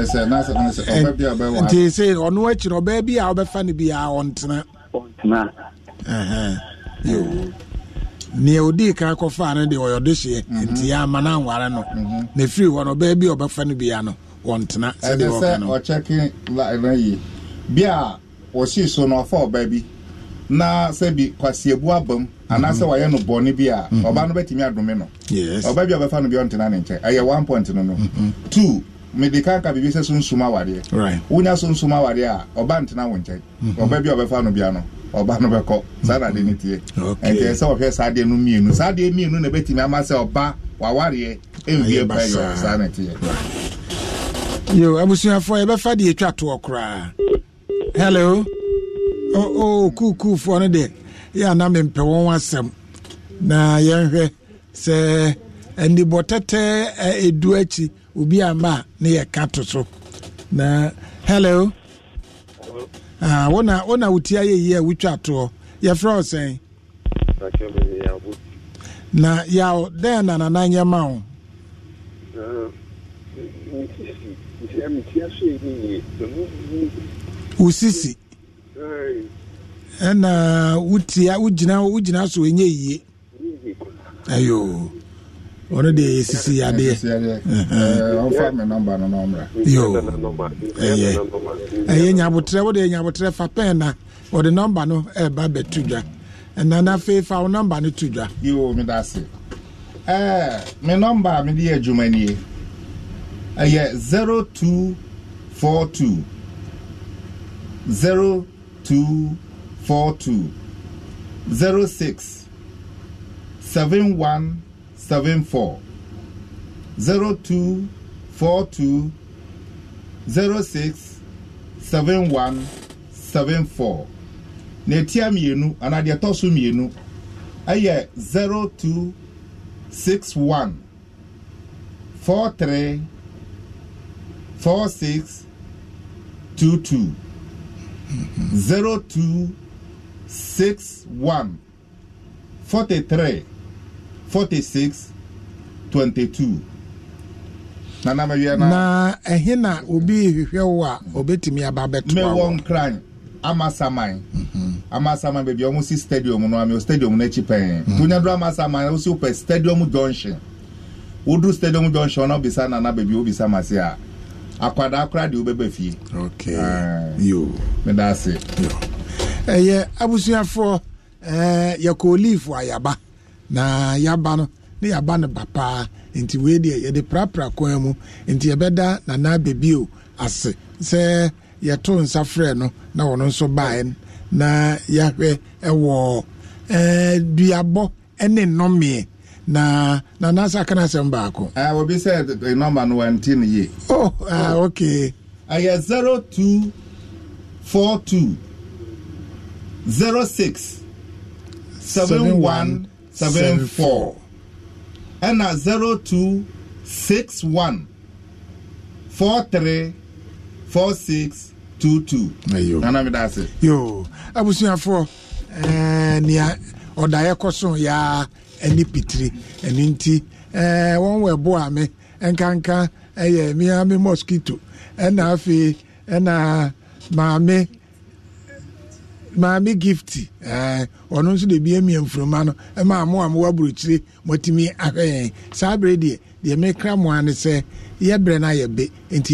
ɛsɛ n'asɛ n'asɛ ɔbɛ bi a ɔbɛ wɔ nti se ɔno akyi ɔbɛ bi a ɔbɛfa ne bi a ɔntena. ɔntena. nea odi kɔfa ne ɔyɛ ɔde hyɛ mhm. nti ama no anware no mhm. na hɔ no bi no la bi a so na ɔfa bi na sɛbi kwasiabu abam mhm. anaasɛ wayɛ no bɔne bi a mhm. ɔba no bɛtumi adome no ɔba bi a ɔbɛfa no bi ɔntena ne nkyɛn ɛyɛ one point no no mhm. two mede ka ka biribi sɛ so nsum awadeɛ wonya so nsum awadeɛ a ɔba ntena wo nkyɛn ɔba bi a ɔbɛfa no bia no ɔba no bɛkɔ saa na ade ne tie ɛnti sɛ wɔhwɛ saa deɛ no mmienu saa deɛ mmienu na ɛbɛtumi ama sɛ ɔba wawareɛ ɛnwie pa yɛ saa na ɛteɛ yo abusuafoɔ yɛbɛfa deɛ ɛtwa toɔ koraa hello kuukuufoɔ no deɛ yɛ ana mempɛ wɔn asɛm na yɛnhwɛ sɛ anibɔ tɛtɛ ɛdu akyi obi ama a ne yɛka to so na hello ah, wona wona wotia yɛyi a wotwa toɔ yɛfrɛ wo sɛn na yaw dɛn na nana nyɛ ma wo wo sisi ɛna wotia wogyina wogyina so ɛnyɛ yie ayo ɔno adeɛ ɛyɛ nyabotrɛ wode nyabotrɛ fa na wɔde nɔmba no ɛba bɛto dwa ɛna na afei fa wo nɔmba no dwa me nɔmba a mede yɛ adwuma nie ɛyɛ 0242 0 two four two zero six seven one seven four zero two four two zero six seven one seven four na etia mmienu anaa deɛ ɛtɔ so mmienu ɛyɛ zero two six one four three four six two two. 0261 43 46 22 na na mewia na na na obi ehwehwe wo a obetumi aba beto nkran amasaman amasaman beebi ɔmo si stadium no ami o stadium n'ekyi pɛn mhm. tonya duro amasaman o si o pɛ stadium junction woduru stadium junction na obisa nana beebi obisa masi a. akwadaa koraa deɛ wobɛba fie ah. meda ase ɛyɛ abusuafoɔ eh, yɛkɔ olive ayaba na yaba no ne yaba no ba paa nti wei deɛ yɛde prapra kwan mu nti yɛbɛda nana bebio ase sɛ yɛto nsa frɛ no na ɔno nso baeɛ na yɛahwɛ ɛwɔ eh, duabɔ ne nnomeɛ na na nansa aka na asɛm baako uh, obi sɛ eh, nɔmba no wanti no ye oh, ah, oh. okay ɛyɛ 0242 06 7174 ɛna 0261 43 4622 nana meda ase yo abusuafoɔ eh, nea ɔdaeɛ kɔ so yaa ne pitiri ɛno nti wɔn wɔ ɛboa me nkanka ɛyɛ mmea me mosquito ɛna afei ɛna maame maame gift ɛɛ ɔno nso de bi emia nfuruma no ɛma mo a mo wɔ aburukyire mi ahwɛ yɛn saa abere deɛ deɛ mekra mo ano sɛ yɛ brɛ na yɛ be nti.